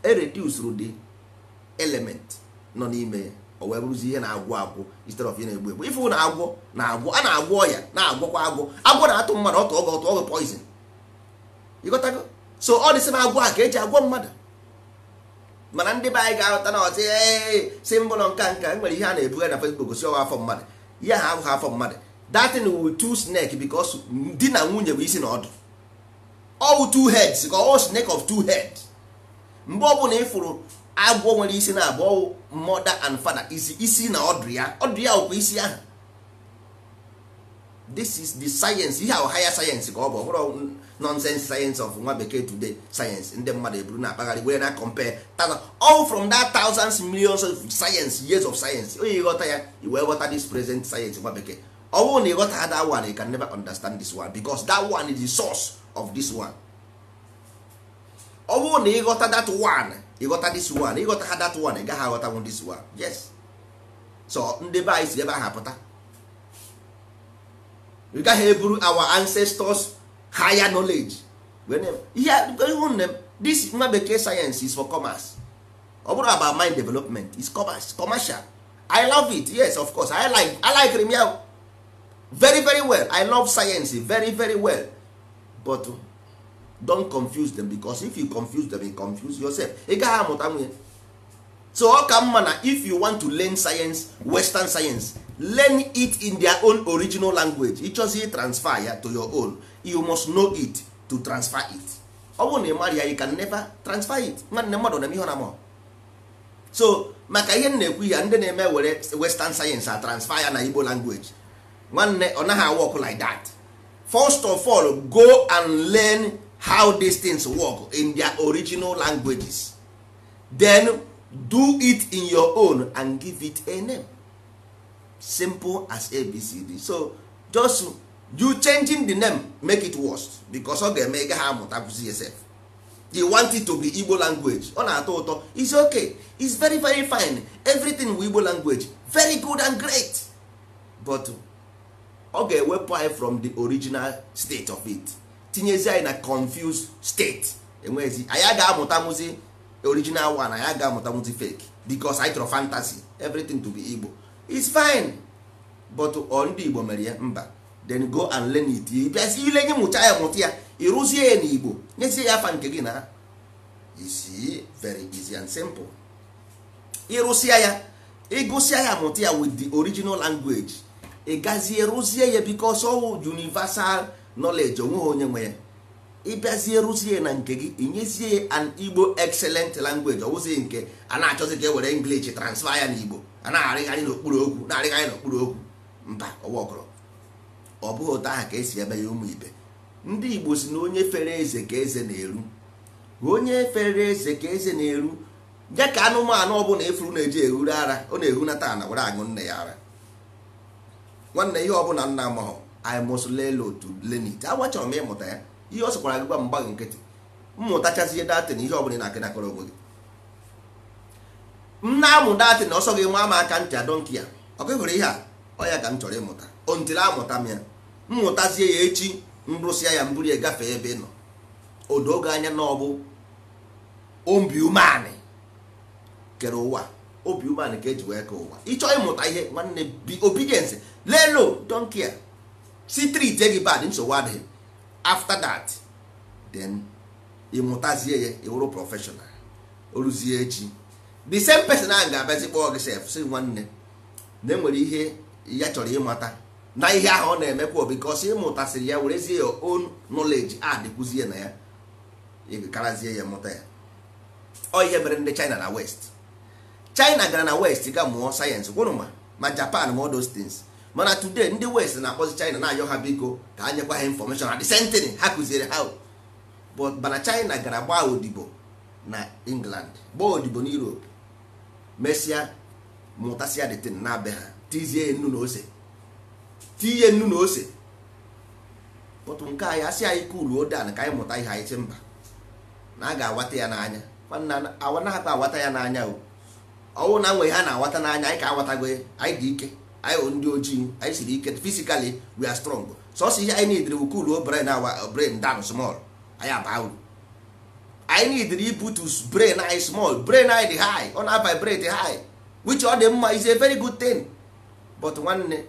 Speaker 1: ereduzuru the element nọ n'ime ya o wee bụrụzi ihe na-agwụ agwụ instead of ihe na-egbu egbu ife na-agwọ na-agwọ a na-agwọ ọya na-agwọkwa agwọ agwọ na-atụ mmadụ ọtụ ọgọ ọtụ ọgọ poison ịghọtago so ọ dịsị na agwọ a ka eji agwọ mmadụ mana ndị be anyị ga-aghọta na ọtị si mbụ nọ nka nka e nwere ihe a na-ebugharị na Facebook gosi ọwa afọ mmadụ ya ha agwụghị afọ mmadụ datin wu two snake because di na nwunye bụ isi na ọdụ all two heads ka all snake of two heads mgbe ọ bụla ịfụrụ agwọ nwere isi na abụọ mother and fada isi na ọdụ ya ọdụ ya ọkwa isi ahụ this is the science ihe ahụ higher science ka ọ bụ ọbụrụ nonsense science of nwa bekee today science ndị mmadụ eburu na akpagharị wee na compare all from that thousands millions of science years of science onye ịghọta ya i wee ghọta this present science nwa bekee ọ na ịghọta ha that one you can never understand this one because that one is the source of this one ọ na ịghọta that one ịghọta this one ịghọta ha that one ị gaghị aghọtanwu this one yes so ndị be anyị si ebe ahụ apụta we gaghị eburu our ancestors higher knowledge ihe this nwa bekee science is for commerce ọ bụrụ about mind development is commerce commercial i love it yes of course i like i like remia very very well i love science very very well but don confuse them because if you confuse them you confuse yourself ị gaghị amụta nwunye so ọ ka mma na if you want to learn science western science learn it in their own original language ịchọzi transfer ya to your own you must know it to transfer it ọ bụrụ na ị ya you can never transfer it nwanne mmadụ na ihe na amụọ so maka ihe m na-ekwu ya ndị na-eme were western science a transfer ya na igbo language nwanne ọ naghị awọkụ like that first of all go and learn how these things work in their original languages then do it in your own and give it a name simple as abcd so just you changing the name make it worse because ọ ga-eme ị gaghị amụtakwụzi yourself you want it to be igbo language ọ na-atọ ụtọ is okay is very very fine everything with igbo language very good and great but ọ ga-ewepụ anyị from the original state of it tinyezi anyị na confused state enweghịzi anyị agaghị amụtanwụzi original one anyị agaghị amụtanwụzi fake because anyị chọrọ fantasy everything to be Igbo is fine but ọ ndị Igbo mere ya mba then go and learn it bịazi ile nye ya mụta ya ịrụzie ya n'Igbo nyezie ya afa nke gị na isi very easy and simple ịrụsịa ya ịgụsịa ya mụta ya with the original language ị gazie rụzie ya because all universal onwe onweghị onye nwe ya ịbịazie rụzie na nke gị inyezie an igbo excellent language ọwụzi nke a na-achọzi ka e were english transfer ya Igbo a na-arịgharị n'okpuru okwu na-arịgharị n'okpuru okwu mba ọwaọkọrọ ọ bụghị ụtọ aha ka esi ebe ya ụmụ ibe ndị igbo si na onye fere eze ka eze na-eru onye fere eze ka eze na-eru ya ka anụmanụ ọbụla ifuru na-eji ehuru ara ọ na-ehunata na were aṅụ nne ya ara nwanne ihe bụla nna amahọ I must learn to learn it m ịmụta ya ihe ọ sịkwara gị gwa m gbaghị nkịtị mmụtachazie datin ihe ọbụla na akenakọrọ ogwe gị m na-amụ datin ọsọ gị nwa m aka ntị adọnki ya ọ gị hụrụ e ihe a ọ ya ka m chọrọ ịmụta ontili amụta m ya mmụtazie ya echi nrụsịa ya mburu ya gafee ebe ị nọ odo oge anya na ọ bụ obi umeanị kere ụwa obi umeanị ka eji wee kee ụwa ịchọọ ịmụta ihe nwanne bi lelo donkia si treat gị bad nsogbu adịghị after that then ịmụtazie ya ịwụrụ professional oruzie echi the same person ahụ ga-abịazi kpọọ gị sef si nwanne na e nwere ihe ya chọrọ ịmata na ihe ahụ ọ na-emekwa because ịmụtasịrị ya werezie ya own knowledge adịkwuzie na ya ịkarazie ya mụta ya ọ ihe mere ndị China na West China gara na West ga mụọ sayensị gwụrụ ma ma Japan ma all those mana today ndị west na-akpọzi china na-ayọ ha biko ka a nyekwa ha infọmeshọn na desentịn ha kụziere ha mana china gara gbaa odibo na england gbaa odibo na europe mesịa mụtasịa detin na abịa ha tizie nnu na ose tinye nnu na ose pọtụ nke anyị asị anyị kuluo dan ka anyị mụta ihe anyị si mba na a ga-awata ya n'anya awa na-akpa awata ya n'anya ọnwụ na nwe ha na-awata n'anya anyị ka awatago anyị dị ike anyị wụ ndị ojii anyị siri ike fisikali we are strong sọsọ ihe anyị nidiri bụ cool brain awa uh, brain down small anyị aba anyị nidiri to brain anyị small brain anyị dị high ọ na-vibrate high which ọ dị mma is a very good thing but nwanne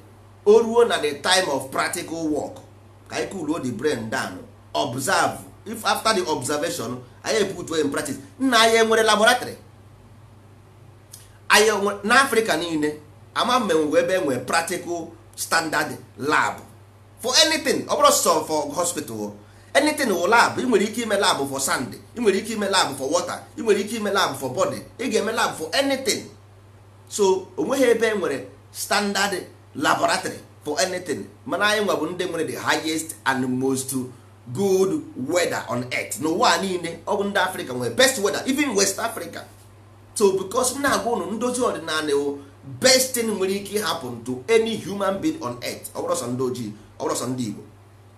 Speaker 1: o ruo na the time of practical work ka anyị cool the brain down observe if after the observation anyị ebutu in practice nna anyị enwere laboratory anyị n'afrịka niile ama mmenwe ebe enwe practical standard lab for anything ọ bụrụ sọ for hospital anything wụ lab ị nwere ike ime lab for sand ị nwere ike ime lab for water ị nwere ike ime lab for body ị ga-eme lab for anything so onweghị ebe enwere standard laboratory for anything mana anyị nwa bụ ndị nwere the highest and most good weather on earth n'ụwa niile ọ bụ ndị Africa nwere best weather even West Africa so because na-agwa ụnụ ndozi ọdịnala best thing nwere ike happen to any human being on earth ọbụrọsọ ndị ojii ọbụrọsọ ndị igbo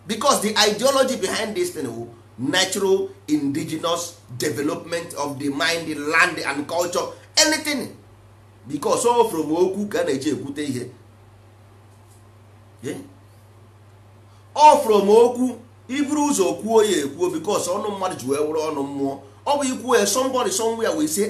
Speaker 1: because the ideology behind this thing wu natural indigenous development of the mind land and culture anything because all from okwu ka a na-eji ekwute ihe o from okwu iburu ụzọ kwuo ya ekwuo because ọnụ mmadụ ji wee wụrụ ọnụ mmụọ ọ bụ ikwuo ya somebody somewhere wee say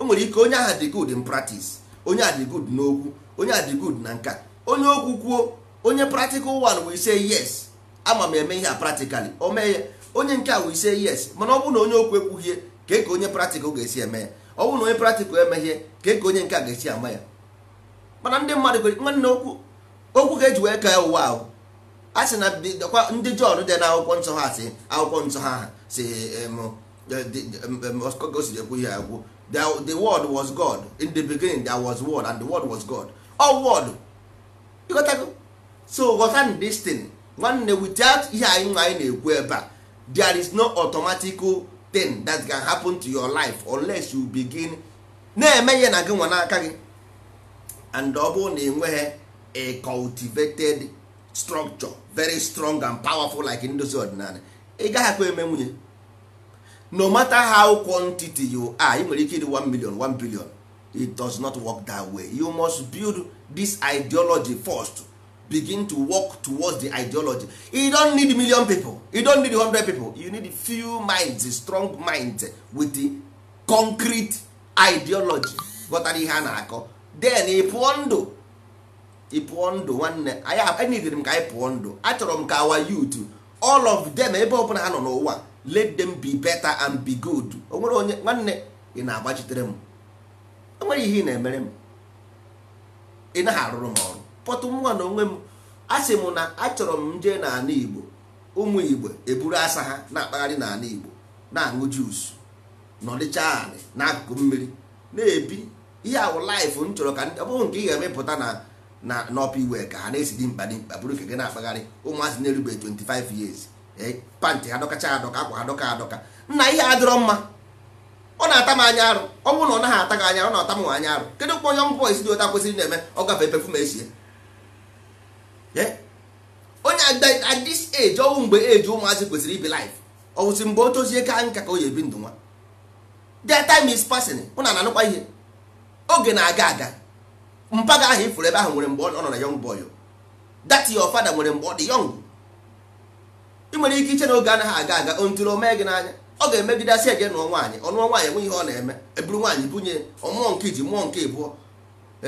Speaker 1: enwere eh, e ike onye aha dị good in practice onye a gud n'okwu onye adị gud na nka onye okwu kwuo onye practical one we say yes ama m eme ihe a practically o mee ya onye nke a we say yes mana ọ na onye okwu ekwughie ka ka onye practical ga-esi eme ya ọ na onye practical emeghe ka ka onye nke a ga-esi ama ya mana ndị mmadụ nwanne okwu okwu ga-eji wee ka ụwa ahụ a sị na ndị Jọn dị na akwụkwọ nsọ ha si akwụkwọ nsọ ha si gosiri ekwu ihe agwụ the, the word was god in the beginning there was word and the word was god all word you got to so ghọta this nwanne without ihe anyị nwa anyị na-ekwu ebe a there is no automatic thing that can happen to your life unless you begin na-eme ihe na gị nwa n'aka gị and ọ bụrụ na enweghị a cultivated structure very strong and powerful like ndozi ọdịnala ị gaghị akpa eme nwunye no matter how quantity you are you nwere ike ịdị 1 million 1 billion it does not work that way you must build this ideology first begin to work towards the ideology you don't need million people you don't need 100 people you need few minds strong minds with the concrete ideology ghọtara ihe a na-akọ then Ipuondo Ipuondo ndụ ị pụọ ndụ nwanne anyị enidere m ka anyị pụọ ndụ achọrọ m ka our youth all of them ebe ọbụla ha nọ n'ụwa let them be better and be good o nwere onye nwanne ị na-agbachitere m o ihe ị na-emere m ị naghị arụrụ m ọrụ pọtụ nwa na onwe m asị m na achọrọ m jee n'ala Igbo ụmụ Igbo eburu asa ha na-akpagharị n'ala Igbo na-aṅụ jus nọdịcha anị n'akụkụ mmiri na-ebi ihe ahụ m chọrọ ka ọ bụrụ nke ị ga-emepụta na na n'ọpa iwe ka ha na-esi dị mkpa dị mkpa bụrụ nke gị na-akpagharị ụmụazị na-erube 25 years Eh, pantị ha dọkacha adọka akwa ha dọka adọka nna ihe adịrọ mma ọ na-ata m anya arụ ọ bụrụ na ọ naghị ata gị anya ọ na-ata m anya arụ kedu mkpọ yọng bọis dị ụta kwesịrị na-eme ọ gafe pefum esie eh? onye at age ọnwụ mgbe eji ụmụazị kwesịrị ibi life ọ wụsị mgbe o tozie ka nka ka o ebi ndụ nwa the time is passing ụna na-anụkwa ihe oge na-aga aga mpaga ahụ ifuru ebe ahụ nwere mgbe ọ nọ na yọng boy that your father nwere mgbe ọ dị yọng ị nwere ike iche na oge anaghị aga aga ntụrụ omee gị n'anya ọ ga asị ege nụọ nwaanyị ọnụọ nwaanyị enweghị ihe ọ na-eme eburu nwaanyị bunye ọmụọ nke iji mmụọ nke ịbụọ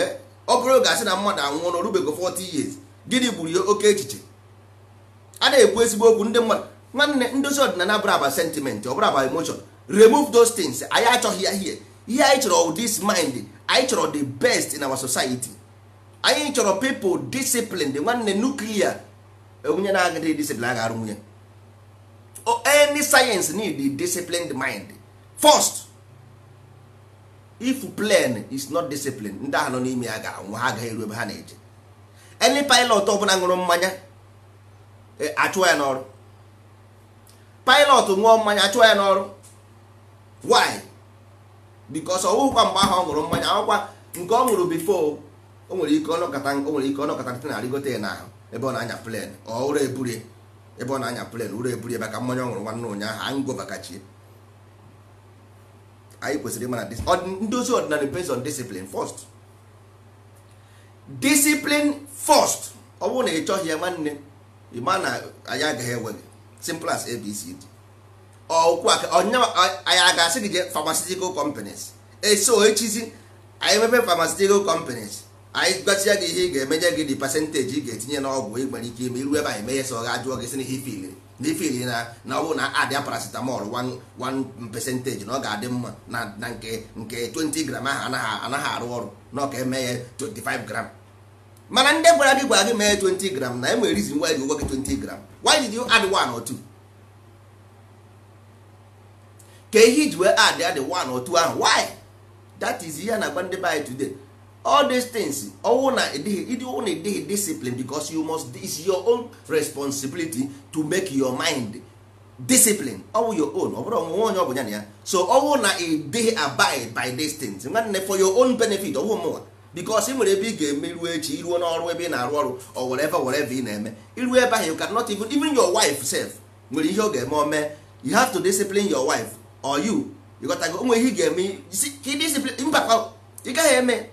Speaker 1: eh, ọ bụrụ oge asị na mmadụ anwụọ na orubego 40 years gịnị gburu ya oke echiche a na-ekwu ezigbo okwu ndị mmadụ nwanne ndozi ọdịnala bụrụ aba sentiment ọ bụrụ aba emotion remove those things anyị achọghị ya ihe ihe anyị chọrọ this mind anyị chọrọ the best in our society anyị chọrọ people disciplined nwanne nuklia onye na-agadịghị discipline a ga-arụ nwunye any science need a disciplined mind first if plane is not disciplined ndị ahụ nọ n'ime ya ga nwa ha agaghị eru ebe ha na-eje any pilot ọ bụla ṅụrụ mmanya eh, achụọ ya n'ọrụ pilot nwụọ mmanya achụọ ya n'ọrụ why because ọwụkwa mgbe ahụ ọ ṅụrụ mmanya ọkwa nke ọ ṅụrụ before o nwere ike ọnọkọta o nwere ike ọnọkọta na arịgote ya n'ahụ ebe ọ na-anya plane ọ ụra eburie ebe ọ na-anya plen ụrụ eburu ebe ka mmanya ọ ṅụrụ nwanne ụnyaahụ ango bakachi. anyị kwesịrị ịma na ndozi ọdịnala based on discipline first discipline first ọ bụrụ na ị chọghị ya nwanne ịma na anyị agaghị enwe gị simple as abcd ọkwụ aka anyị a ga-asị gị jee pharmaceutical companies eso echizi anyị mebe pharmaceutical companies anyị gbatịa gị ihe ị ga-emenye gị dị pasentịji ị ga-etinye na n'ọgwụ ị nwere ike ime iru ebe anyị mee ya so ajụọ gị si na ifili na na ọ bụ na adịa paracetamol 1 percentage na ọ ga-adị mma na nke nke 20 gram ahụ anaghị arụ ọrụ na ka eme 25 gram mana ndị gwara gị gwara gị mee 20 gram na enwere reason why gị ụgwọ gram did you add 1 ihe iji wee add add ahụ why that is ihe na agba ndị be today all these things ọwụ na ịdịghị ọwụ na ịdịghị discipline because you must it's your own responsibility to make your mind discipline ọwụ your own ọ bụrụ ọnwụnwe onye ọ bụ ya na ya so ọwụ na ịdịghị abide by these things nwanne for your own benefit ọwụ mụnwa because ị nwere ebe ị ga-emeruo echi iruo n'ọrụ ebe ị na-arụ ọrụ or whatever whatever ị na-eme iruo ebe ahụ you cannot even even your wife self nwere ihe ọ ga-eme ome you have to discipline your wife or you ịghọtago onwe ihe ị ga-eme mba ị gaghị eme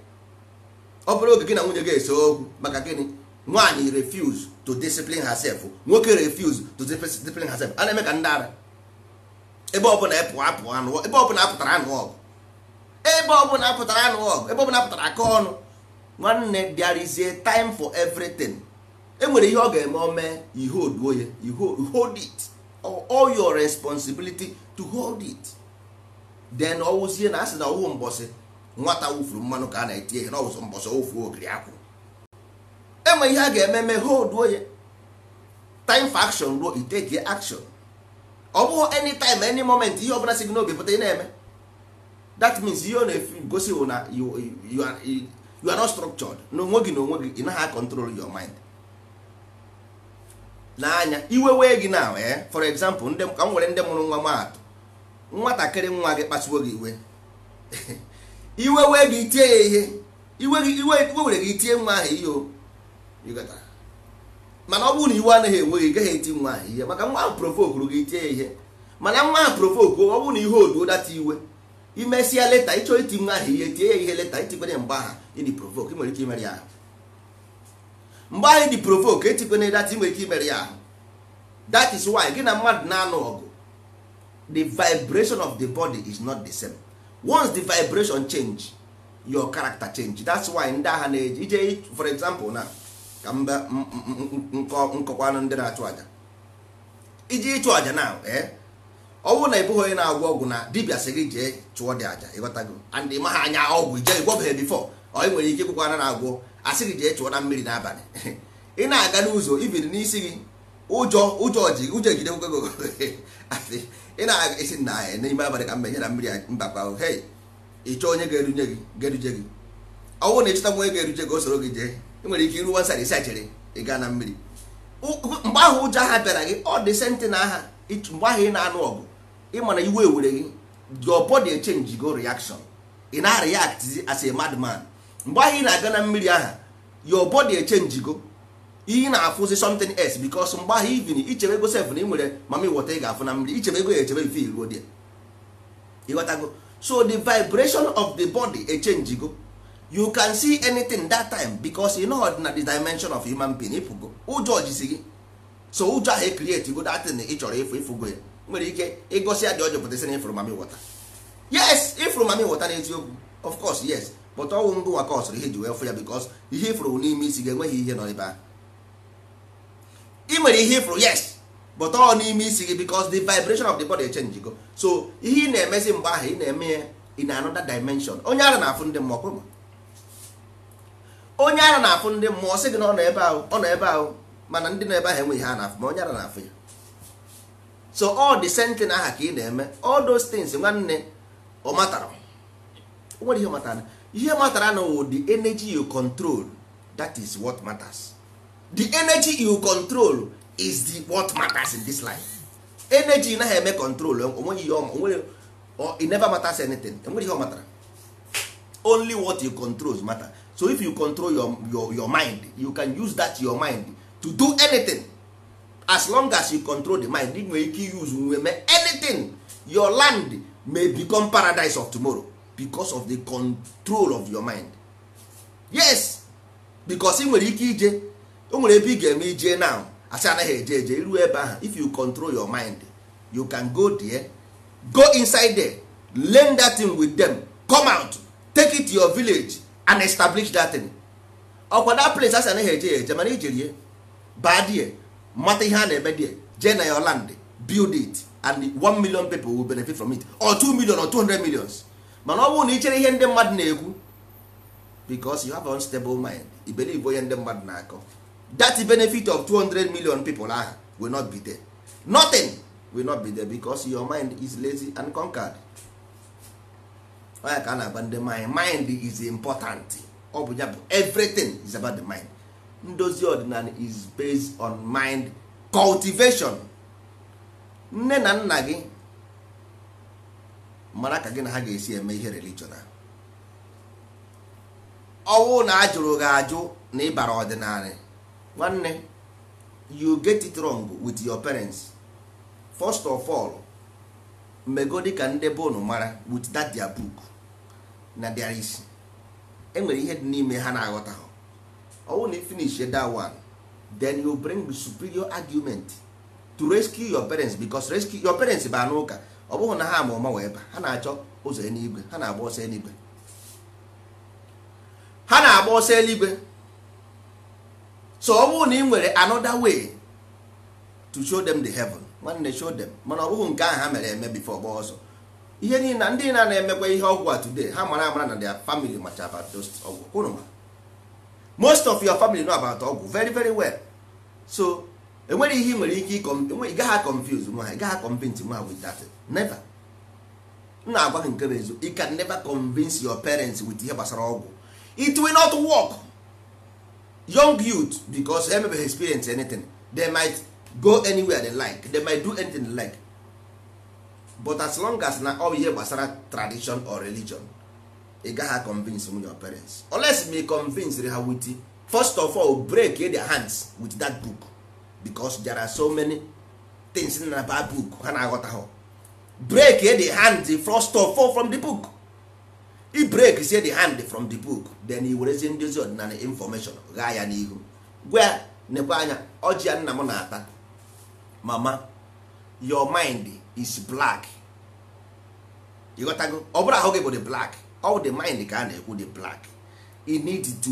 Speaker 1: ọ bụrụ oge gị na nwunye gị ese okwu maka gịnị nwaanyị refuse to discipline herself nwoke refuse to discipline herself a na-eme ka ndị ara ebe ọbụla ebe apụtara anụ ọgụ ebe ọbụla apụtara anụ ọgụ ebe ọbụla apụtara aka ọnụ nwanne there is a time for everything e nwere ihe ọ ga-eme ome ihe oduo ya hold it all your responsibility to hold it then ọwụzie na asị na ọwụ mbọsị nwata wufuru mmanụ ka a na-eti ihe n'ọwụsọ mbọsọ ofu ogiri akwụ enwe ihe a ga-eme mee holduo ya time for action ruo iteke action ọ bụghị anytime any moment ihe ọbụla si gị n'obi pụta ị na-eme that means ihe ọ na-egosi bụ na you are not structured n'onwe gị n'onwe gị ị naghị akọntrol your mind n'anya iwe wee gị na ee eh? for example ka m nwere ndị mụrụ nwa maatụ nwatakịrị nwa gị kpasuo gị iwe iwe wee gị itie ya ihe iwe were gị itie nwa ahụ ihe o mana ọ bụrụ na iwe anaghị enwe gị gaghị eti nwa ahụ ihe maka nwa ahụ provokuru gị itie ya ihe mana nwa ahụ provoku ọ bụrụ na ihe oduo data iwe imesịa leta ịchọ iti nwa ahụ ihe tie ya ihe leta itikwere mgbe aha ịdị ị nwere ike imere ya ahụ mgbe ahụ ịdị provoke etikwere data ị nwere ike imere ya ahụ that is why gị na mmadụ na-anụ ọgụ the vibration of the body is not the same. once the vibration change your character change that's why ndị agha na-eji ije for example na ka mba nkọkwanụ ndị na-achụ aja iji ịchụ aja eh? na ọ bụrụ na ịbụghị bụghị onye na-agwọ ọgwụ na dibia sị gị jee chụọ dị aja ịghọtago and ịma ha anya ọgwụ ije ịgwọbeghị bifọ ọ nwere ike ịkwụkwa na-agwọ asị gị jee chụọ na mmiri n'abalị ị na-aga n'ụzọ ibiri n'isi gị ụjọ ụjọ ji ụjọ ejide ị na-aga esi nna eh, anyị n'ime abalị ka mbe nye na mmiri mbakwa ahụ hei ịchọ onye ga-eruje gị ga-eruje gị ọ bụrụ na ịchọta nwa onye ga-eruje gị o soro gị jee ị nwere ike iru wansar isi achịrị ị gaa na mmiri mgbe ahụ ụjọ aha bịara gị ọ dị senti na aha mgbe ahụ ị na-anụ ọgụ ịma na iwe were gị your body change go reaction ị na-react as a madman mgbe ahụ ị na-aga na mmiri aha your body change go iyi na-afụzi something else because mgbe ahụ ivin ichebe ego sef na ị nwere mami wọta ị ga-afụ na mmiri ichebe ego ya echebe mfe iruo dị ịghọtago so the vibration of the body echange go you can see anything that time because you know na the dimension of human being ịpụgo ụjọ jisi gị so ụjọ ahụ ekrieti go datin ị chọrọ ịfụ ịfụgo ya nwere ike ịgosi ya dị ọjọọ pụtasị na ịfụrụ mami wọta yes ịfụrụ mami wọta n'eziokwu of course yes but ọnwụ ngụ nwa ka ihe e ji wee fụ ya because ihe ịfụrụ n'ime isi gị enweghị ihe nọ ebe ahụ ị nwere ihe ifuru yes but ọ n'ime isi gị because the vibration of the body change go so ihe ị na-emezi mgbe ahụ ị na-eme ya in another dimension onye ara na-afụ ndị mmụọ kwụrụ onye ara na-afụ ndị mmụọ sị gị na ọ nọ ebe ahụ ọ nọ ebe ahụ mana ndị nọ ebe ahụ enweghị ha na-afụ ma onye ara na-afụ ya so all the same thing aha ka ị na-eme all those things nwanne ọ matara o nwere ihe matara ihe matara na the energy you control that is what matters. the energy you control is the what matters in this life energy na eme control onweghị ihe or it never matters anything enweghị ihe ọ matara only what you control matter so if you control your, your, your mind you can use that your mind to do anything as long as you control the mind ị nwere ike use nweme anything your land may become paradise of tomorrow because of the control of your mind yes because ị nwere ike ije o nwere ebe ị ga-eme ije now asị anaghị eje eje iru ebe ahụ if you control your mind you can go there go inside there learn that thing with them come out take it to your village and establish that thing ọkwa that place asị anaghị eje eje mana ijerie baa die mata ihe a na-eme die jee na your land build it and one million people will benefit from it or 2 million or 200 hundred millions mana ọ bụrụ na ichere chere ihe ndị mmadụ na-ekwu because you have unstable mind i onye ndị mmadụ na-akọ that benefit of 200 million people ahụ will not be there nothing will not be there becos your mind is lazy and conquered onye ka a na-agba ndị mind mind is important ọ bụ ya bụ everything is about the mind ndozi ọdịnala is based on mind cultivation nne na nna gị mara ka gị na ha ga-esi eme ihe religion ọnwụ na ajụrụ gị ajụ na ịbara ọdịnala nwanne you get it wrong with your parents first of all mmego dịka ndị be mara with that their book na their isi enwere ihe dị n'ime ha na-aghọta ha ọwụ na finish that one then you bring the superior argument to rescue your parents because rescue your parents ba n'ụka ọ bụghị na ha ama ọma wee ba ha na-achọ ụzọ eluigwe ha na-agba ọsọ eluigwe ha na-agba ọsọ eluigwe so ọ bụrụ na ị nwere another way to show them the heaven nwanne show them mana ọ bụghị nke ahụ ha mere eme bifo gba ọzọ. ihe niile na ndị na na-emekwa ihe ọgwụ a today ha mara amara na their family macha about those ọgwụ unu ma most of your family know about ọgwụ very very well so enwere ihe ị nwere ike ị e gaghị confuse nwa ha ị gaghị convince nwa ha with that never m na-agwa gị nke bụ eziokwu you can never convince your parents with ihe gbasara ọgwụ it will not work young youth because emebeghị experience anything they might go anywhere they like they might do anything they like but as long as na all ihe gbasara tradition or religion ị gaghị convince m your parents unless me convince ha with first of all break their hands with that book because there are so many things in that book ha na-aghọtaghọ break the hand first of all from the book i break say the hand from the book then i werezie ndozi ọdịnala infọmeshọn ghaa ya n'ihu gwa na nekwa anya ọjị ya nna m na-ata mama your mind is black ịghọtago ọ bụrụ ahụ gị bụ the black all the mind ka a na-ekwu the black you need to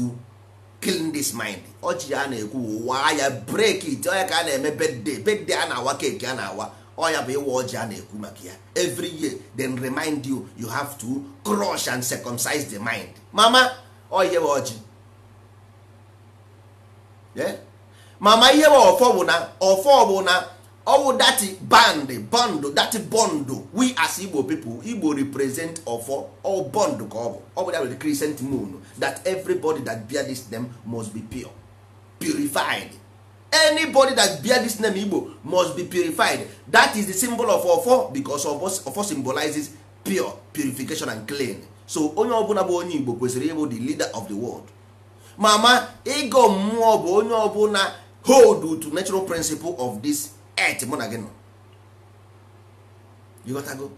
Speaker 1: clean this mind ọjị ya na-ekwu waa ya break it ọya ka a na-eme bedde bedde a na-awa keki a na-awa ọ bụ ịwa ọjị a na-ekwu maka ya every year then remind you you have to crush and circumcise the mind mama ọ ihe ọjị mama ihe wa ọfọ bụ na ọfọ bụ na ọwụ dati band bond dati bond we as igbo pipo igbo represent ọfọ all bond ka ọ bụ ọ bụ ya bụ the crescent moon that everybody that bear this name must be pure purified anybody that bear this name igbo must be purified that is the symbol of ofo because ofo symbolizes pure purification and clean so onye ọbụla bụ onye igbo kwesịrị ịbụ the leader of the world mama ịgọ mmụọ bụ onye ọbụla hold to natural principle of this earth mụ na gị nọ ịghọtago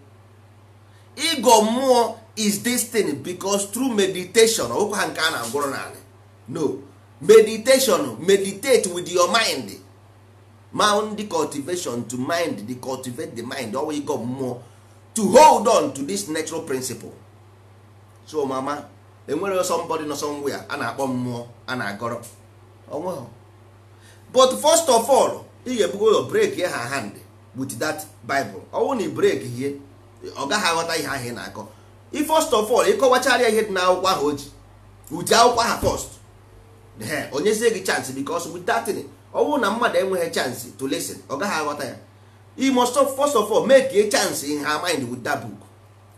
Speaker 1: ịgọ mmụọ is this thing because through meditation ọkwa ha nke a na-agwọrọ n'ala no meditation meditate with your mind mound the cultivation to mind the cultivate the mind always go mmụọ to hold on to this natural principle so mama enwere somebody nọ somewhere a na-akpọ mmụọ a na-agọrọ onweghị but first of all ị ga-ebugo your break ha hand with that bible ọnwụ na break ihe ọ gaghị aghọta ihe ahụ ị na-akọ ị first of all ịkọwachara ihe dị n'akwụkwọ ahụ o ji ụdị akwụkwọ ha first onyezie gị chance because with that thing na mmadụ enweghị chance to listen ọ gaghị aghọta ya you must first of all make chance in her mind wit that book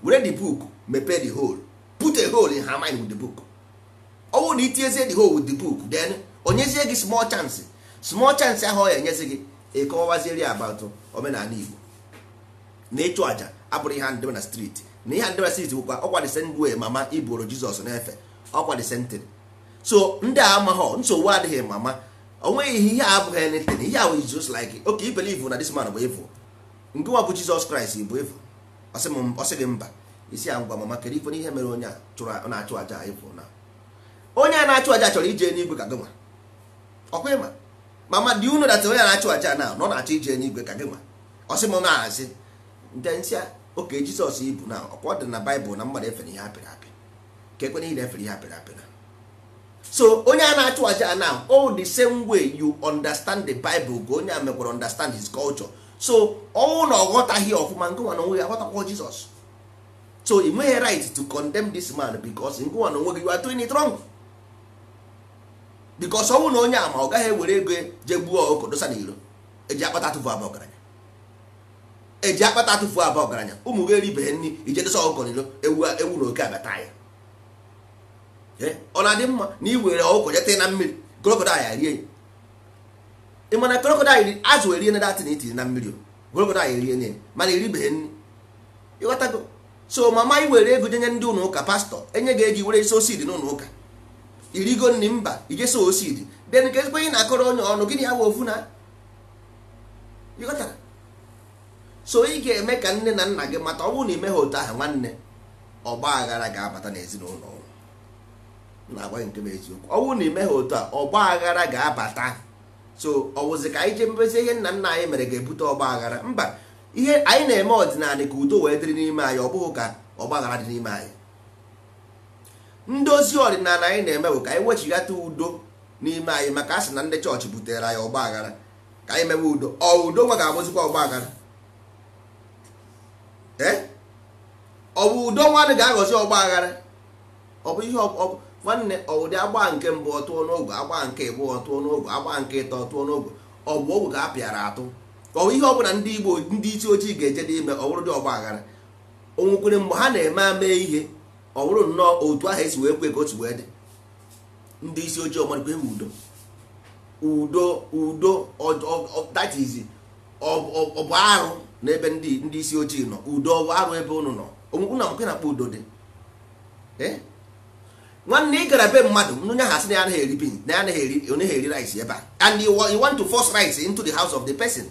Speaker 1: were the book mepee the hole put a hole in her mind with the book ọ na itinyezie the hole with the book then onyezie gị small chance small chance ahụ ọ ya enyezi gị ịkọwazieri about omenala Igbo na ịchụ abụrụ ihe na ihe na street bụkwa e, mama iboro Jizọs na-efe so ndị a amaghọ nsogbu adịghị mama onweghị ihe ihe abụghị anything ihe ahụ is just like okay you na this bụ evil nke nwa bụ Jizọs Kraịst bụ evil ọsị gị mba isi ya ngwa mama kedu ife n'ihe mere onye a na-achụ aja evil na onye a na-achụ aja chọrọ ije n'igwe ka gị nwa mama dị unu dat onye na-achụ aja na ọ na-achọ ije n'igwe ka gị nwa ọsị m na-asị nte oke Jizọs ibu na ọkwa ọ dị na Baịbụl na mmadụ efere ihe apịrị apị ka ekwe ihe na efere ihe apịrị apị na so onye a na-achụ aja now all the same way you understand the bible ka onye a mekwara understand his culture so ọnwụ na ọ ghọtaghị ọfụma ngụnwa na onwe ya aghọtakwa jizọs so ị nweghị right to condemn this man bicos ngụnwa na onwe gị you are doing it wrong bicos ọnwụ na onye ama ọ gaghị ewere ego je gbuo ọkụkọ dosa na iro eji akpata atụfu aba ọgaranya eji akpata atụfu aba ọgaranya ụmụ gị eribeghị nri ije dosa ọkụkọ na iro ewu na oke abata ya Eh, ọ na-adị mma na ị were ọgwụkwọ jeta na mmiri krokodil rie ya ị mana krokodil azụ erie na datin itiri na mmiri krokodil erie na mana eribeghị nri ịghọtago so mama i were ego jenye ndị ụlọ ụka pastọ enye ga-eji were isi osid n'ụlọ ụka irigo nri mba ijesi osid den ka ezigbo onye na-akọrọ onye ọnụ gịnị awa ofu na ịghọtara so ị ga-eme ka nne na nna gị mata ọ bụrụ na ị meghị otu ahụ nwanne ọgba aghara ga-abata n'ezinụlọ na-agwa nke bụ eziokwu ọ bụrụ na imeghe otu a ọgba aghara ga-abata so ọ wụzi ka anyị ji mebezi ihe nna nna anyị mere ga-ebute ọgba aghara mba ihe anyị na-eme ọdịnala ka udo wee dịrị n'ime anyị ọ bụghị ka ọgba aghara dị n'ime anyị ndozi ọdịnala anyị na-eme bụ ka anyị wechighata udo n'ime anyị maka asị na ndị chọọchị butere anyị ọgba aghara ka anyị mewe udo ọ udo nwa ga-abụzikwa ọgba aghara ee eh? ọ bụ udo nwa ga-aghọzi ọgba aghara ọ bụ ihe nwanne ọwụdị agba nke mbụ ọtụọ n'ogo agba nke ịbụ ọtụọ n'ogo agba nke ịtọ ọtụọ n'ogo ọ bụ ọgwụ ka a pịara atụ ọwụ ihe ọbụla ndị igbo ndị isi ojii ga-eje n'ime bụrụ dị ọgba aghara onwekwere mgbe ha na-eme ame ihe bụrụ nnọọ otu ahụ esi wee kwe ka otu wee dị ndị isi ojii ọgbarikwe udo udo udo that is ọ bụ arụ n'ebe ndị isi ojii nọ udo arụ ebe ụnụ nọ onwekwu na mkpe na akpa udo dị eh? nwanne ị gara be mmadụ onye ha sị na ya anaghị eri bin na ya anaghị eri onye eri rice ebe a and you want to force rice into the house of the person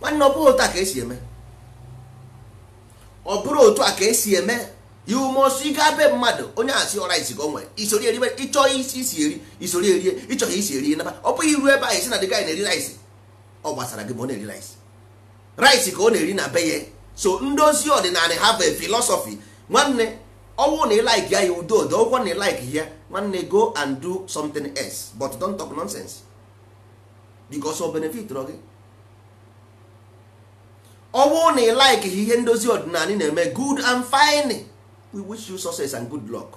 Speaker 1: nwanne ọ bụrụ otu a ka esi eme ọ bụrụ otu a ka esi eme you must ịga be mmadụ onye asị ọ rice ka o nwere isori eri ịchọ isi eri isori eri ịchọghị isi eri naba ọ bụghị iru ebe a esi na dị gị na-eri rice ọ gbasara gị ma ọ na-eri rice rice ka ọ na-eri na be ya so ndozi ọdịnala have a philosophy nwanne ọnwụ na ịlaik ya ya odo odo ọgwụkwọ na ịlaik ya nwanne go and do something else but don't talk nonsense because of benefit rọ gị ọnwụ na ịlaik ihe ndozi ọdịnala na-eme good and fine we wish you success and good luck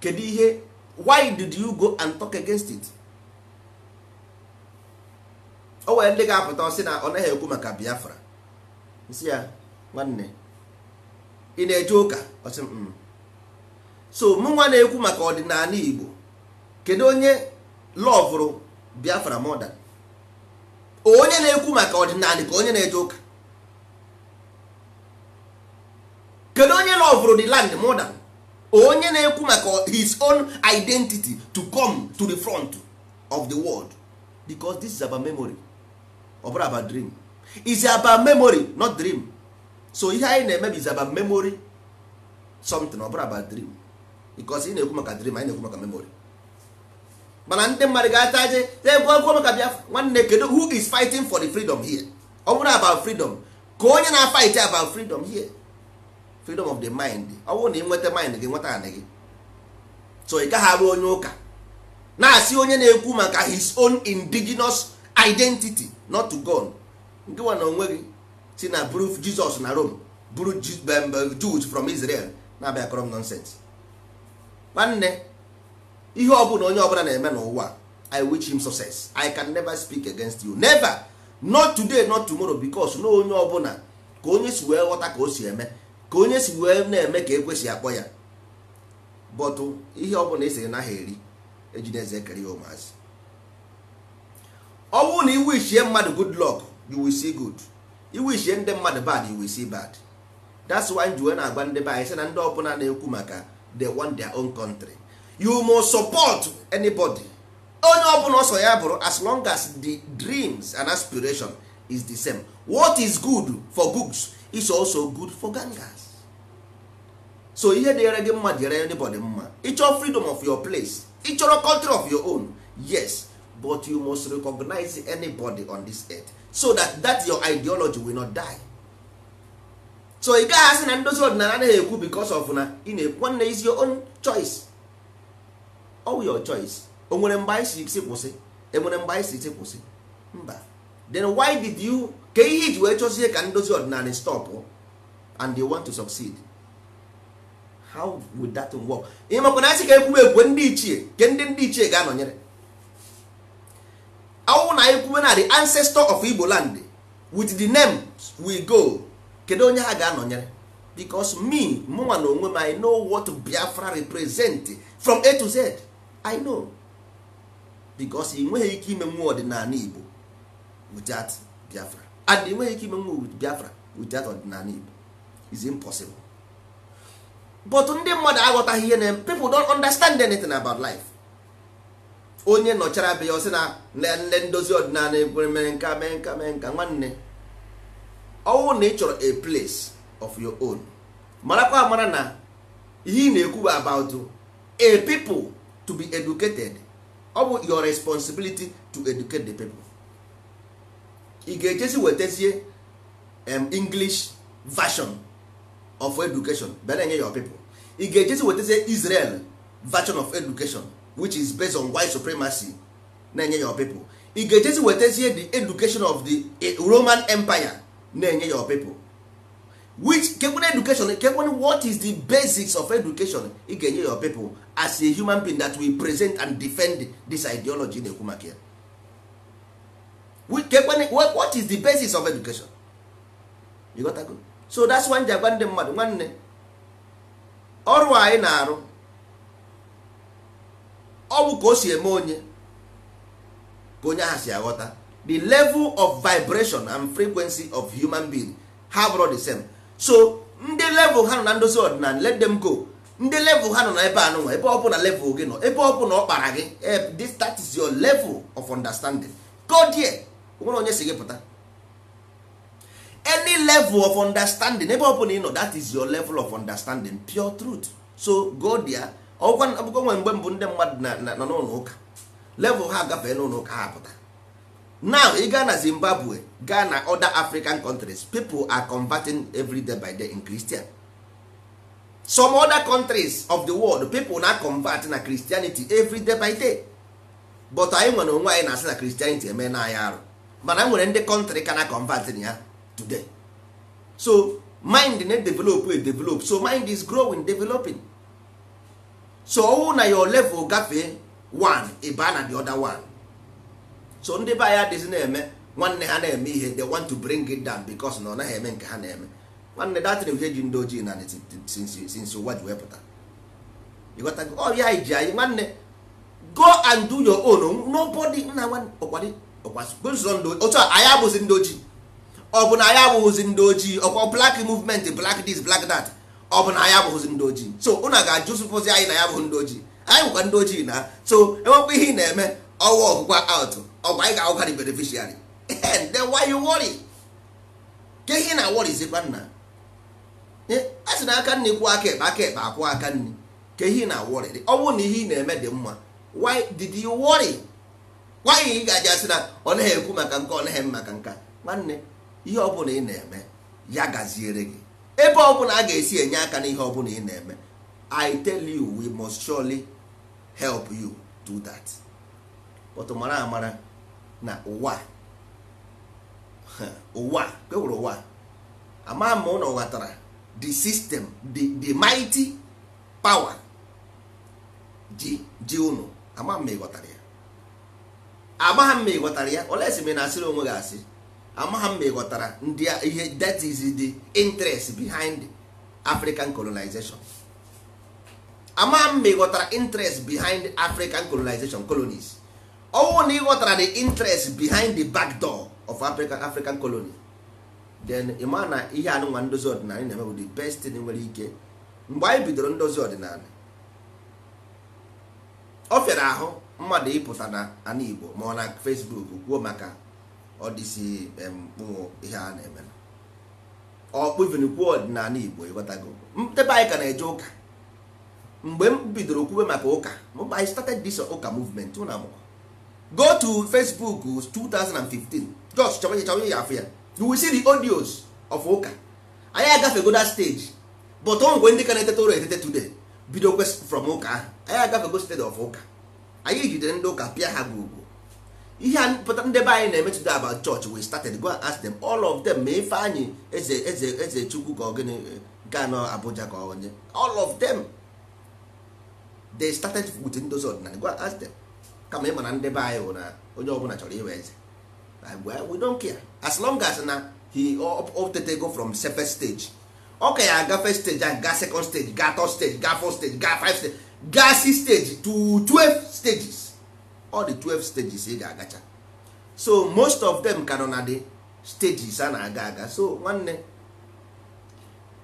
Speaker 1: kedu ihe why did you go and talk against it o nwere ndị ga-apụta ọsị na ọ naghị ekwu maka Biafra nsị ya nwanne ị na-eje ụka mm. so mụnwa na-ekwu maka ọdịnala Igbo kedu onye lọvụrụ Biafra mọda onye na-ekwu maka ọdịnala ka onye na-eje ụka kedu onye lọvụrụ the land mọda onye na-ekwu maka his own identity to come to the front of the world because this is about memory ọ bụrụ about dream is about memory not dream so ihe anyị na-eme ba about memory something ọ bụrụ about dream because ị na-ekwu maka dream anyị na-ekwu maka memory mana ndị mmadụ ga-ata je egwu maka Biafra nwanne kedu who is fighting for the freedom here ọ bụrụ about freedom ka onye na-afight about freedom here freedom of the mind ọ bụrụ na ị nweta mind gị nweta anị gị so ị gaghị arụ onye ụka na-asị onye na-ekwu maka his own indigenous identity not to God nke nwa onwe gị si na bruf jizọs na rome buru jud from israel na-abịa krom nonsens nwanne ihe ọ bụla onye ọbụla na-eme n'ụwa i wish him success i can never speak against you never not today not tomorrow because na onye ọbụla ka onye si wee ghọta ka o si eme ka onye si wee na-eme ka ekwesị akpọ ya bọtụ ihe ọbụla esiri naghị eri ejideze ekere ya ụmụazị ọ bụrụ na i wish mmadụ good luck you will see good iwishie ndị mmadụ bad iwu bad that's why njiwe na-agba ndị be anyị sị na ndị ọbụla na-ekwu maka want their own country you must support anybody onye ọbụla ọsọ ya bụrụ as long as the dreams and aspiration is the same what is good for goods is also good for gangas so ihe dịere gị mma dịere anybody mma ịchọrọ freedom of your place ịchọrọ country of your own yes but you must recognize anybody on this earth so that that your ideology will not die so ị gaghị asị na ndozi ọdịnala anaghị ekwu because of na ị na-ekwu is your own choice all your choice o nwere mgbe anyị si kwụsị enwere mgbe anyị si kwụsị mba then why did you ka ihe iji wee chọzie ka ndozi ọdịnala stop and they want to succeed how would that work? ịmakwa na asị ka ekwuwe ekwe ndị ichie ke ndị ndị ichie ga-anọnyere awụ na anyị na di ancestor of Igbo land with the names we go kedu onye ha ga-anọnyere because me mụnwa na onwe m I know what Biafra represent from A to Z I know because i nweghị ike ime mmụọ ọdịnala Igbo without Biafra and i nweghị ike ime mmụọ with Biafra without ọdịnala Igbo is impossible but ndị mmadụ aghọtaghị ihe na people don understand anything about life onye nọchara be ya ọ sị na nle ndozi ọdịnala ekwere mere nka mee nka mee nka nwanne ọnwụ na ị chọrọ a place of your own marakwa mara na ihe ị na-ekwu about a people to be educated ọ bụ your responsibility to educate the people ị ga-ejesi wetazie English version of education bịa na-enye your people ị ga-ejesi wetazie Israel version of education which is based on white supremacy na-enye your people ị ga-ejezi wetazie the education of the eh, roman empire na-enye your people which kekwana education kekwana what is the basics of education ị ga-enye your people as a human being that will present and defend this ideology na-ekwu maka ya what is the basis of education you got go so that's one ji agwa ndị mmadụ nwanne ọrụ anyị na-arụ bụ ka o si eme onye ka onye ahụ si aghọta the level of vibration and frequency of human being ha bụrụ the same so ndị level ha nọ na ndozi ọdịnala let them go ndị level ha nọ na ebe anụnwa ebe ọ bụla level gị nọ ebe ọ bụla ọ kpara gị eh, this that is your level of understanding go there nwere onye si gị pụta any level of understanding ebe ọ bụla ị nọ that is your level of understanding pure truth so go there ọgwụkwa nwere mgbe mbụ ndị mmadụ nọ n'ụlọ ụka level ha agafee n'ụlọ ụka ha pụta now ị gaa na zimbabwe gaa na other african countries people are converting every day by day in christian some other countries of the world people na convert na christianity every day by day but anyị nwere onwe anyị na-asị na christianity eme na anyị arụ mana e nwere ndị country ka na convert ya today so mind na-edevelop edevelop so mind is growing developing so ọnwụ na your level gafee one ịba na the other one so ndị be anyị adịghịzi na-eme nwanne ha na-eme ihe they want to bring it down because na ọ naghị eme nke ha na-eme nwanne na ihe ji ndị ojii na since ụwa oh, ji wepụta ọrịa anyị ji anyị nwanne go and do your own nobody nna nwanne otu a anyị abụghịzi ndị ojii ọ bụ na anyị abụghịzi ndị ojii ọkwa black movement black this black that ọ bụ na anyị abụghịzi ndị ojii so ụna ga-ajụzụpụzi anyị na ya bụ ndị ojii anyị bụkwa ndị ojii na so enwekwa ihe ị na-eme ọwa ọgụgwa out ọgwa anyị ga-agụgharị beneficiary then why you worry ke ihe na worry zikwa nna a sị na aka nne kwuo aka ekpe aka ekpe akwụ aka nne ke ihe na worry ọ bụrụ na ihe ị na-eme dị mma why did you worry why ị ga-aji asị na ọ naghị ekwu maka nke ọ naghị maka nka nwanne ihe ọ bụla ị na-eme ya gaziere gị ebe ọbụla a ga-esi enye aka n'ihe ọbụla ị na-eme I tell you we must surely help you do that but mara amara na ụwa ụwa kewere ụwa ama ma ụlọ ghọtara the system the, the mighty power ji ji ụnụ ama ma ị ya amagha m ma ịghọtara ya olesi m na asịrị onwe gị asị amaghị m ma ị ndị ihe that is the interest behind african colonization amaghị m interest behind african colonization colonies ọnwụ na ị ghọtara the interest behind the back door of african, african colony then ịma na ihe anụnwa ndozi ọdịnala na-eme bụ the best thing nwere ike mgbe anyị bidoro ndozi ọdịnala ọ fịara ahụ mmadụ ịpụta na ana igbo ma ọ na facebook kwuo maka ọ dịsị mkpụ ihe a na-eme ọkpụvinkwu ọdịnala Igbo ịghọtago ebe anyị ka na-eje ụka mgbe m bidoro kwube maka ụka I started this ụka movement ụna amụkwa go to Facebook 2015 just chọwa chọba ya afọ ya you will see the audios of ụka anyị agafego that stage but ọ nwekwe ndị ka na-etete ụlọ etete today bido from ụka ahụ anyị agafego stage of ụka anyị jidere ndị ụka pịa ha gburugburu ihe a pụta ndebe anyị na-eme today about church we started go and ask them all of them ma ife anyị eze eze eze chukwu ka ọgịnị ga Abuja ka onye all of them they started with ndozi ordinary go and ask them kama ịma na ndebe anyị bụ na onye ọbụla chọrọ iwe eze we don't care as long as na he go from first stage ọ ka ya 1st stage a ga second stage ga third stage ga fourth stage ga five stage ga six stage to twelve stages all the 12 stages ị e ga-agacha so most of them ka nọ na the stages a na-aga aga so nwanne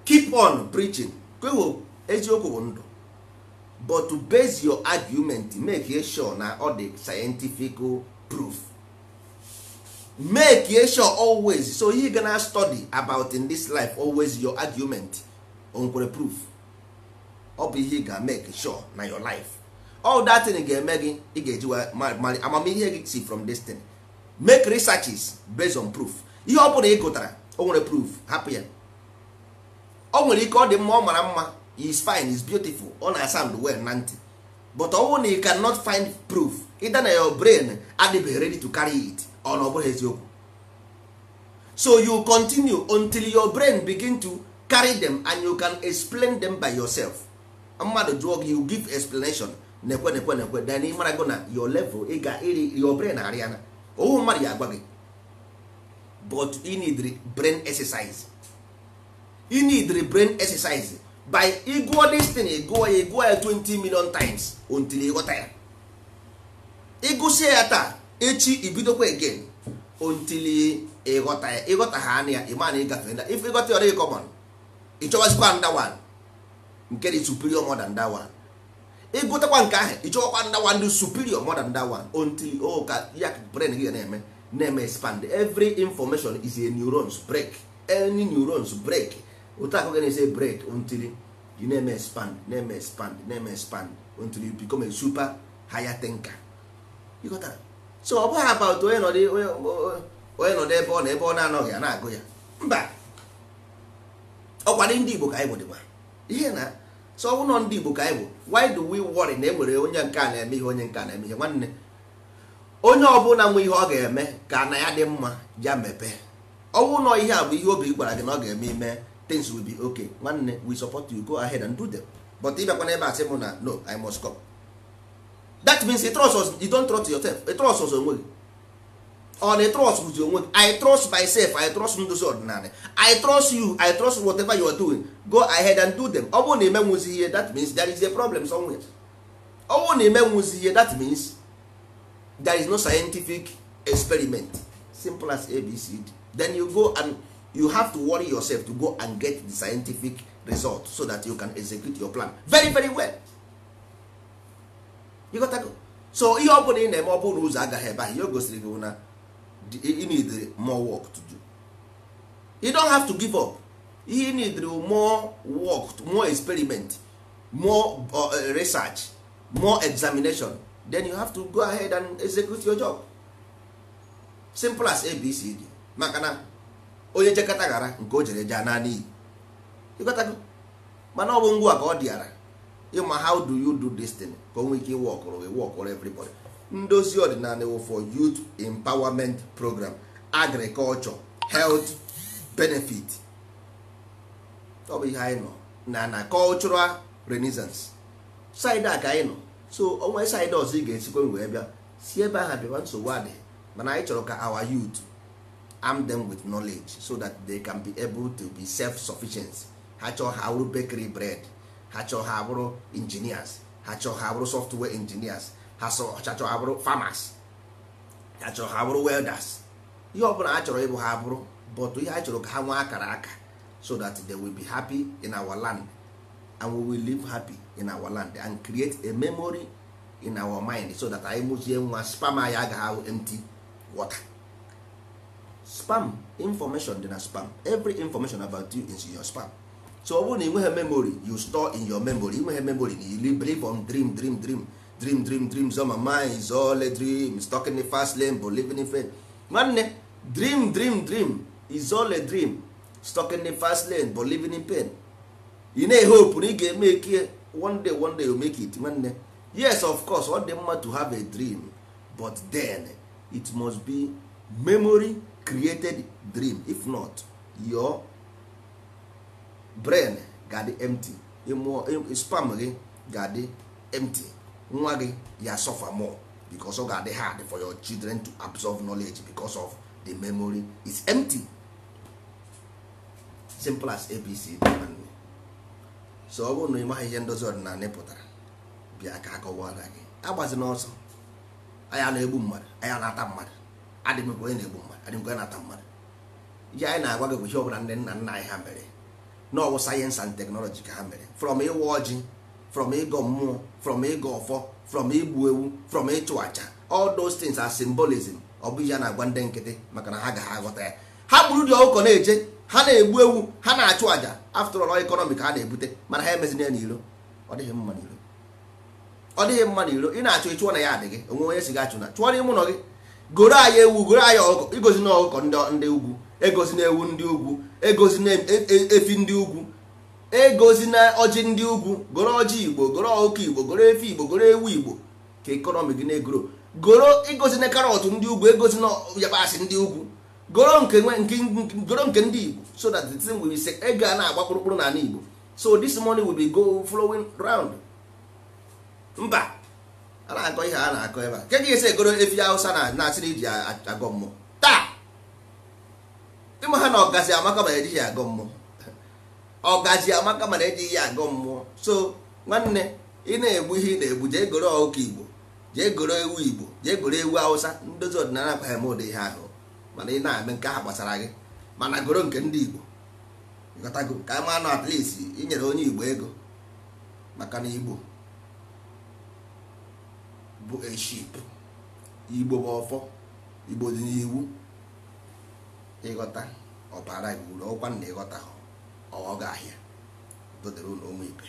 Speaker 1: keep on preaching kwewo eziokwu bụ ndụ but to base your argument make e sure na ọ dị scientific proof make e sure always so you gonna study about in this life always your argument Nkwere proof ọ bụ ihe ga make sure na your life all that thing ga-eme gị ị ga-eji amamihe gị si from destiny make researches based on proof ihe ọ bụla ị gụtara o nwere proof hapụ ya o nwere ike ọ dị mma ọ mara mma is fine is beautiful ọ na sound well na ntị but ọ bụrụ na you cannot find proof either na your brain adịbeghị ready to carry it ọ na ọ bụrụ eziokwu so you continue until your brain begin to carry them and you can explain them by yourself mmadụ jụọ gị you give explanation na-ekwe na-ekwe na-ekwe then ịmara gị na your level ị ga iri your brain arịa na owu mmadụ ya agwa gị but you need brain exercise you need brain exercise by ịgụọ this thing iguo ya ịgụọ ya 20 million times until ịghọta ya ịgụsịa ya taa echi ibidokwa again until ịghọta ya ịghọta ha anya ya ịma na ịgafe na if ịghọta ya ọ dịghị common ịchọwazikwa nda one nke dị superior modern than that one ịgụtakwa nke ahụ ịchọkwa ndawa ndị superior more than that until o oh, ka ya brain gị na-eme na-eme expand every information is a neurons break any neurons break otu akụ ga say break until you na-eme expand na-eme expand na-eme expand until you become a super higher thinker ịghọtara so ọ bụghị about onye nọ ebe ọ na ebe ọ na-anọghị a na-agụ ya mba ọkwa ndị Igbo ka anyị bụ dịgba ihe na so ụlọ ndị Igbo ka anyị bụ why do we worry na e nwere onye nke a na-eme ihe onye nke a na-eme ihe nwanne onye ọbụla nwe ihe ọ ga-eme ka na ya dị mma ya mepee ọnwụ nọ ihe a bụ ihe obi gwara gị na ọ ga-eme ime things will be okay nwanne we support you go ahead and do them but ị bịakwa n'ebe a sị m na no I must go that means you trust us you don't trust yourself you trust us onwe gị on oh, a trust with your own i trust myself i trust ndozi ọdịnala i trust you i trust whatever you are doing go ahead and do them ọ bụrụ na ihe that means there is a problem somewhere ọ bụrụ na ihe that means there is no scientific experiment simple as abcd then you go and you have to worry yourself to go and get the scientific result so that you can execute your plan very very well you got to go. so ihe ọ bụla ị na-eme ọ bụrụ na ụzọ agaghị ebe ahụ ihe o gosiri gị na you need more work to do you don't have to give up you need more work more experiment more uh, uh, research more examination then you have to go ahead and execute your job simple as abcd maka na onye jekọta ghara nke o jere jaa naanị iyi mana ọ bụ ngwa ka ọ dịara ịma how do you do this thing ka o nwee ike ịwọkụrụ gị wọkụrụ everybody ndozi ọdịnala for youth empowerment program agriculture health benefit ọ bụ ihe anyị nọ na na cultural renaissance side a ka anyị nọ so onwe side ọzọ ị ga-esikwe wee bịa si ebe ahụ bịawa nsogbu mana anyị chọrọ ka our youth arm them with knowledge so that they can be able to be self-sufficient ha chọọ ha abụrụ bakery bread ha chọọ ha abụrụ engineers ha chọọ ha abụrụ software engineers as a ọchachọ ha bụrụ farmers ha chọrọ ha bụrụ welders ihe ọbụla a chọrọ ịbụ ha bụrụ but ihe a chọrọ ka ha nwee akara aka so that they will be happy in our land and we will live happy in our land and create a memory in our mind so that anyị mụzie nwa spam anyị agaghị ahụ empty water spam information dị na spam every information about you is in your spam so ọ bụrụ na ị nweghị memory you store in your memory ị nweghị memory na you live on dream dream dream dream dream dream on my mind is all a dream stuck fast lane but living in faith nwanne dream dream dream is all a dream stuck fast lane but living in pain ị na hope na ị ga-eme one day one day you make it nwanne yes of course ọ dị mma to have a dream but then it must be memory created dream if not your brain ga-adị empty spam gị ga-adị empty nwa gị ya suffer more because ọ ga-adị hard for your children to absorb knowledge because of the memory is empty simple as abc so ọ bụrụ na ị maghị ihe ndozi ọdịnala pụtara bịa ka akọwara gị agbazina ọsọ anya na-egbu mmadụ anya na-ata mmadụ adịmekwa onye na-egbu mmadụ adịmekwa onye na-ata mmadụ ihe anyị na-agwa gị bụ ihe ọbụla ndị nna nna anyị ha mere na ọwụ sayensị and teknọlọji ka ha mere from ịwa ọjị from ịgọ mmụọ from ịgọ ọfọ from igbu ewu from ịchụ aja all those things are symbolism ọ bụ a na-agwa ndị nkịtị maka na ha ga aghọta ya ha gburu dị ọkụkọ na-eje ha na-egbu ewu ha na-achụ aja after all economic ha na-ebute mana ha emezina ya n'iro ọ dịghị mma n'iro ọ dịghị mma n'iro ị na-achụ ịchụọ na ya adịghị onwe onye si gị achụ na chụọ n'ime ụlọ gị goro anyị ewu goro anyị ọkụkọ igozi na ọkụkọ ndị ugwu egozi na ewu ndị ugwu egozi na e, e, efi ndị ugwu egozina na ọjị ndị ugwu goro ọjị igbo goro ọkụ igbo goro efe igbo goro ewu igbo ka ekonomi gị na-egoro goro egozi na karọt ndị ugwu egozi na yabasị ndị ugwu goro nke goro nke ndị igbo so that the thing will be sick ego a na-agba kpụrụkpụrụ n'ala igbo so this money will be go flowing round mba a na-akọ ihe a na-akọ ebe a nke gị ese goro efi hausa na na-asịrị iji agọ mmụọ taa ịma ha na ọgazi amaka ma ejighị agọ mmụọ ọgaji amaka mana eji ya agụ mmụọ so nwanne ị na-egbu ihe ị na-egbu jee goro ọkụkọ igbo jee goro ewu igbo jee goro ewu awụsa ndozi ọdịnala akwaghị m ụdị ihe ahụ mana ị na-eme nke ahụ gbasara gị mana goro nke ndị igbo gọtago ka ma nọ at inyere onye igbo ego maka na igbo bụ eship igbo bụ ọfọ igbo dị n'iwu ịghọta ọbara gị uru ọkwa na ịghọta ha ọ ga-ahịa dodere ụlọ ụmụ ibe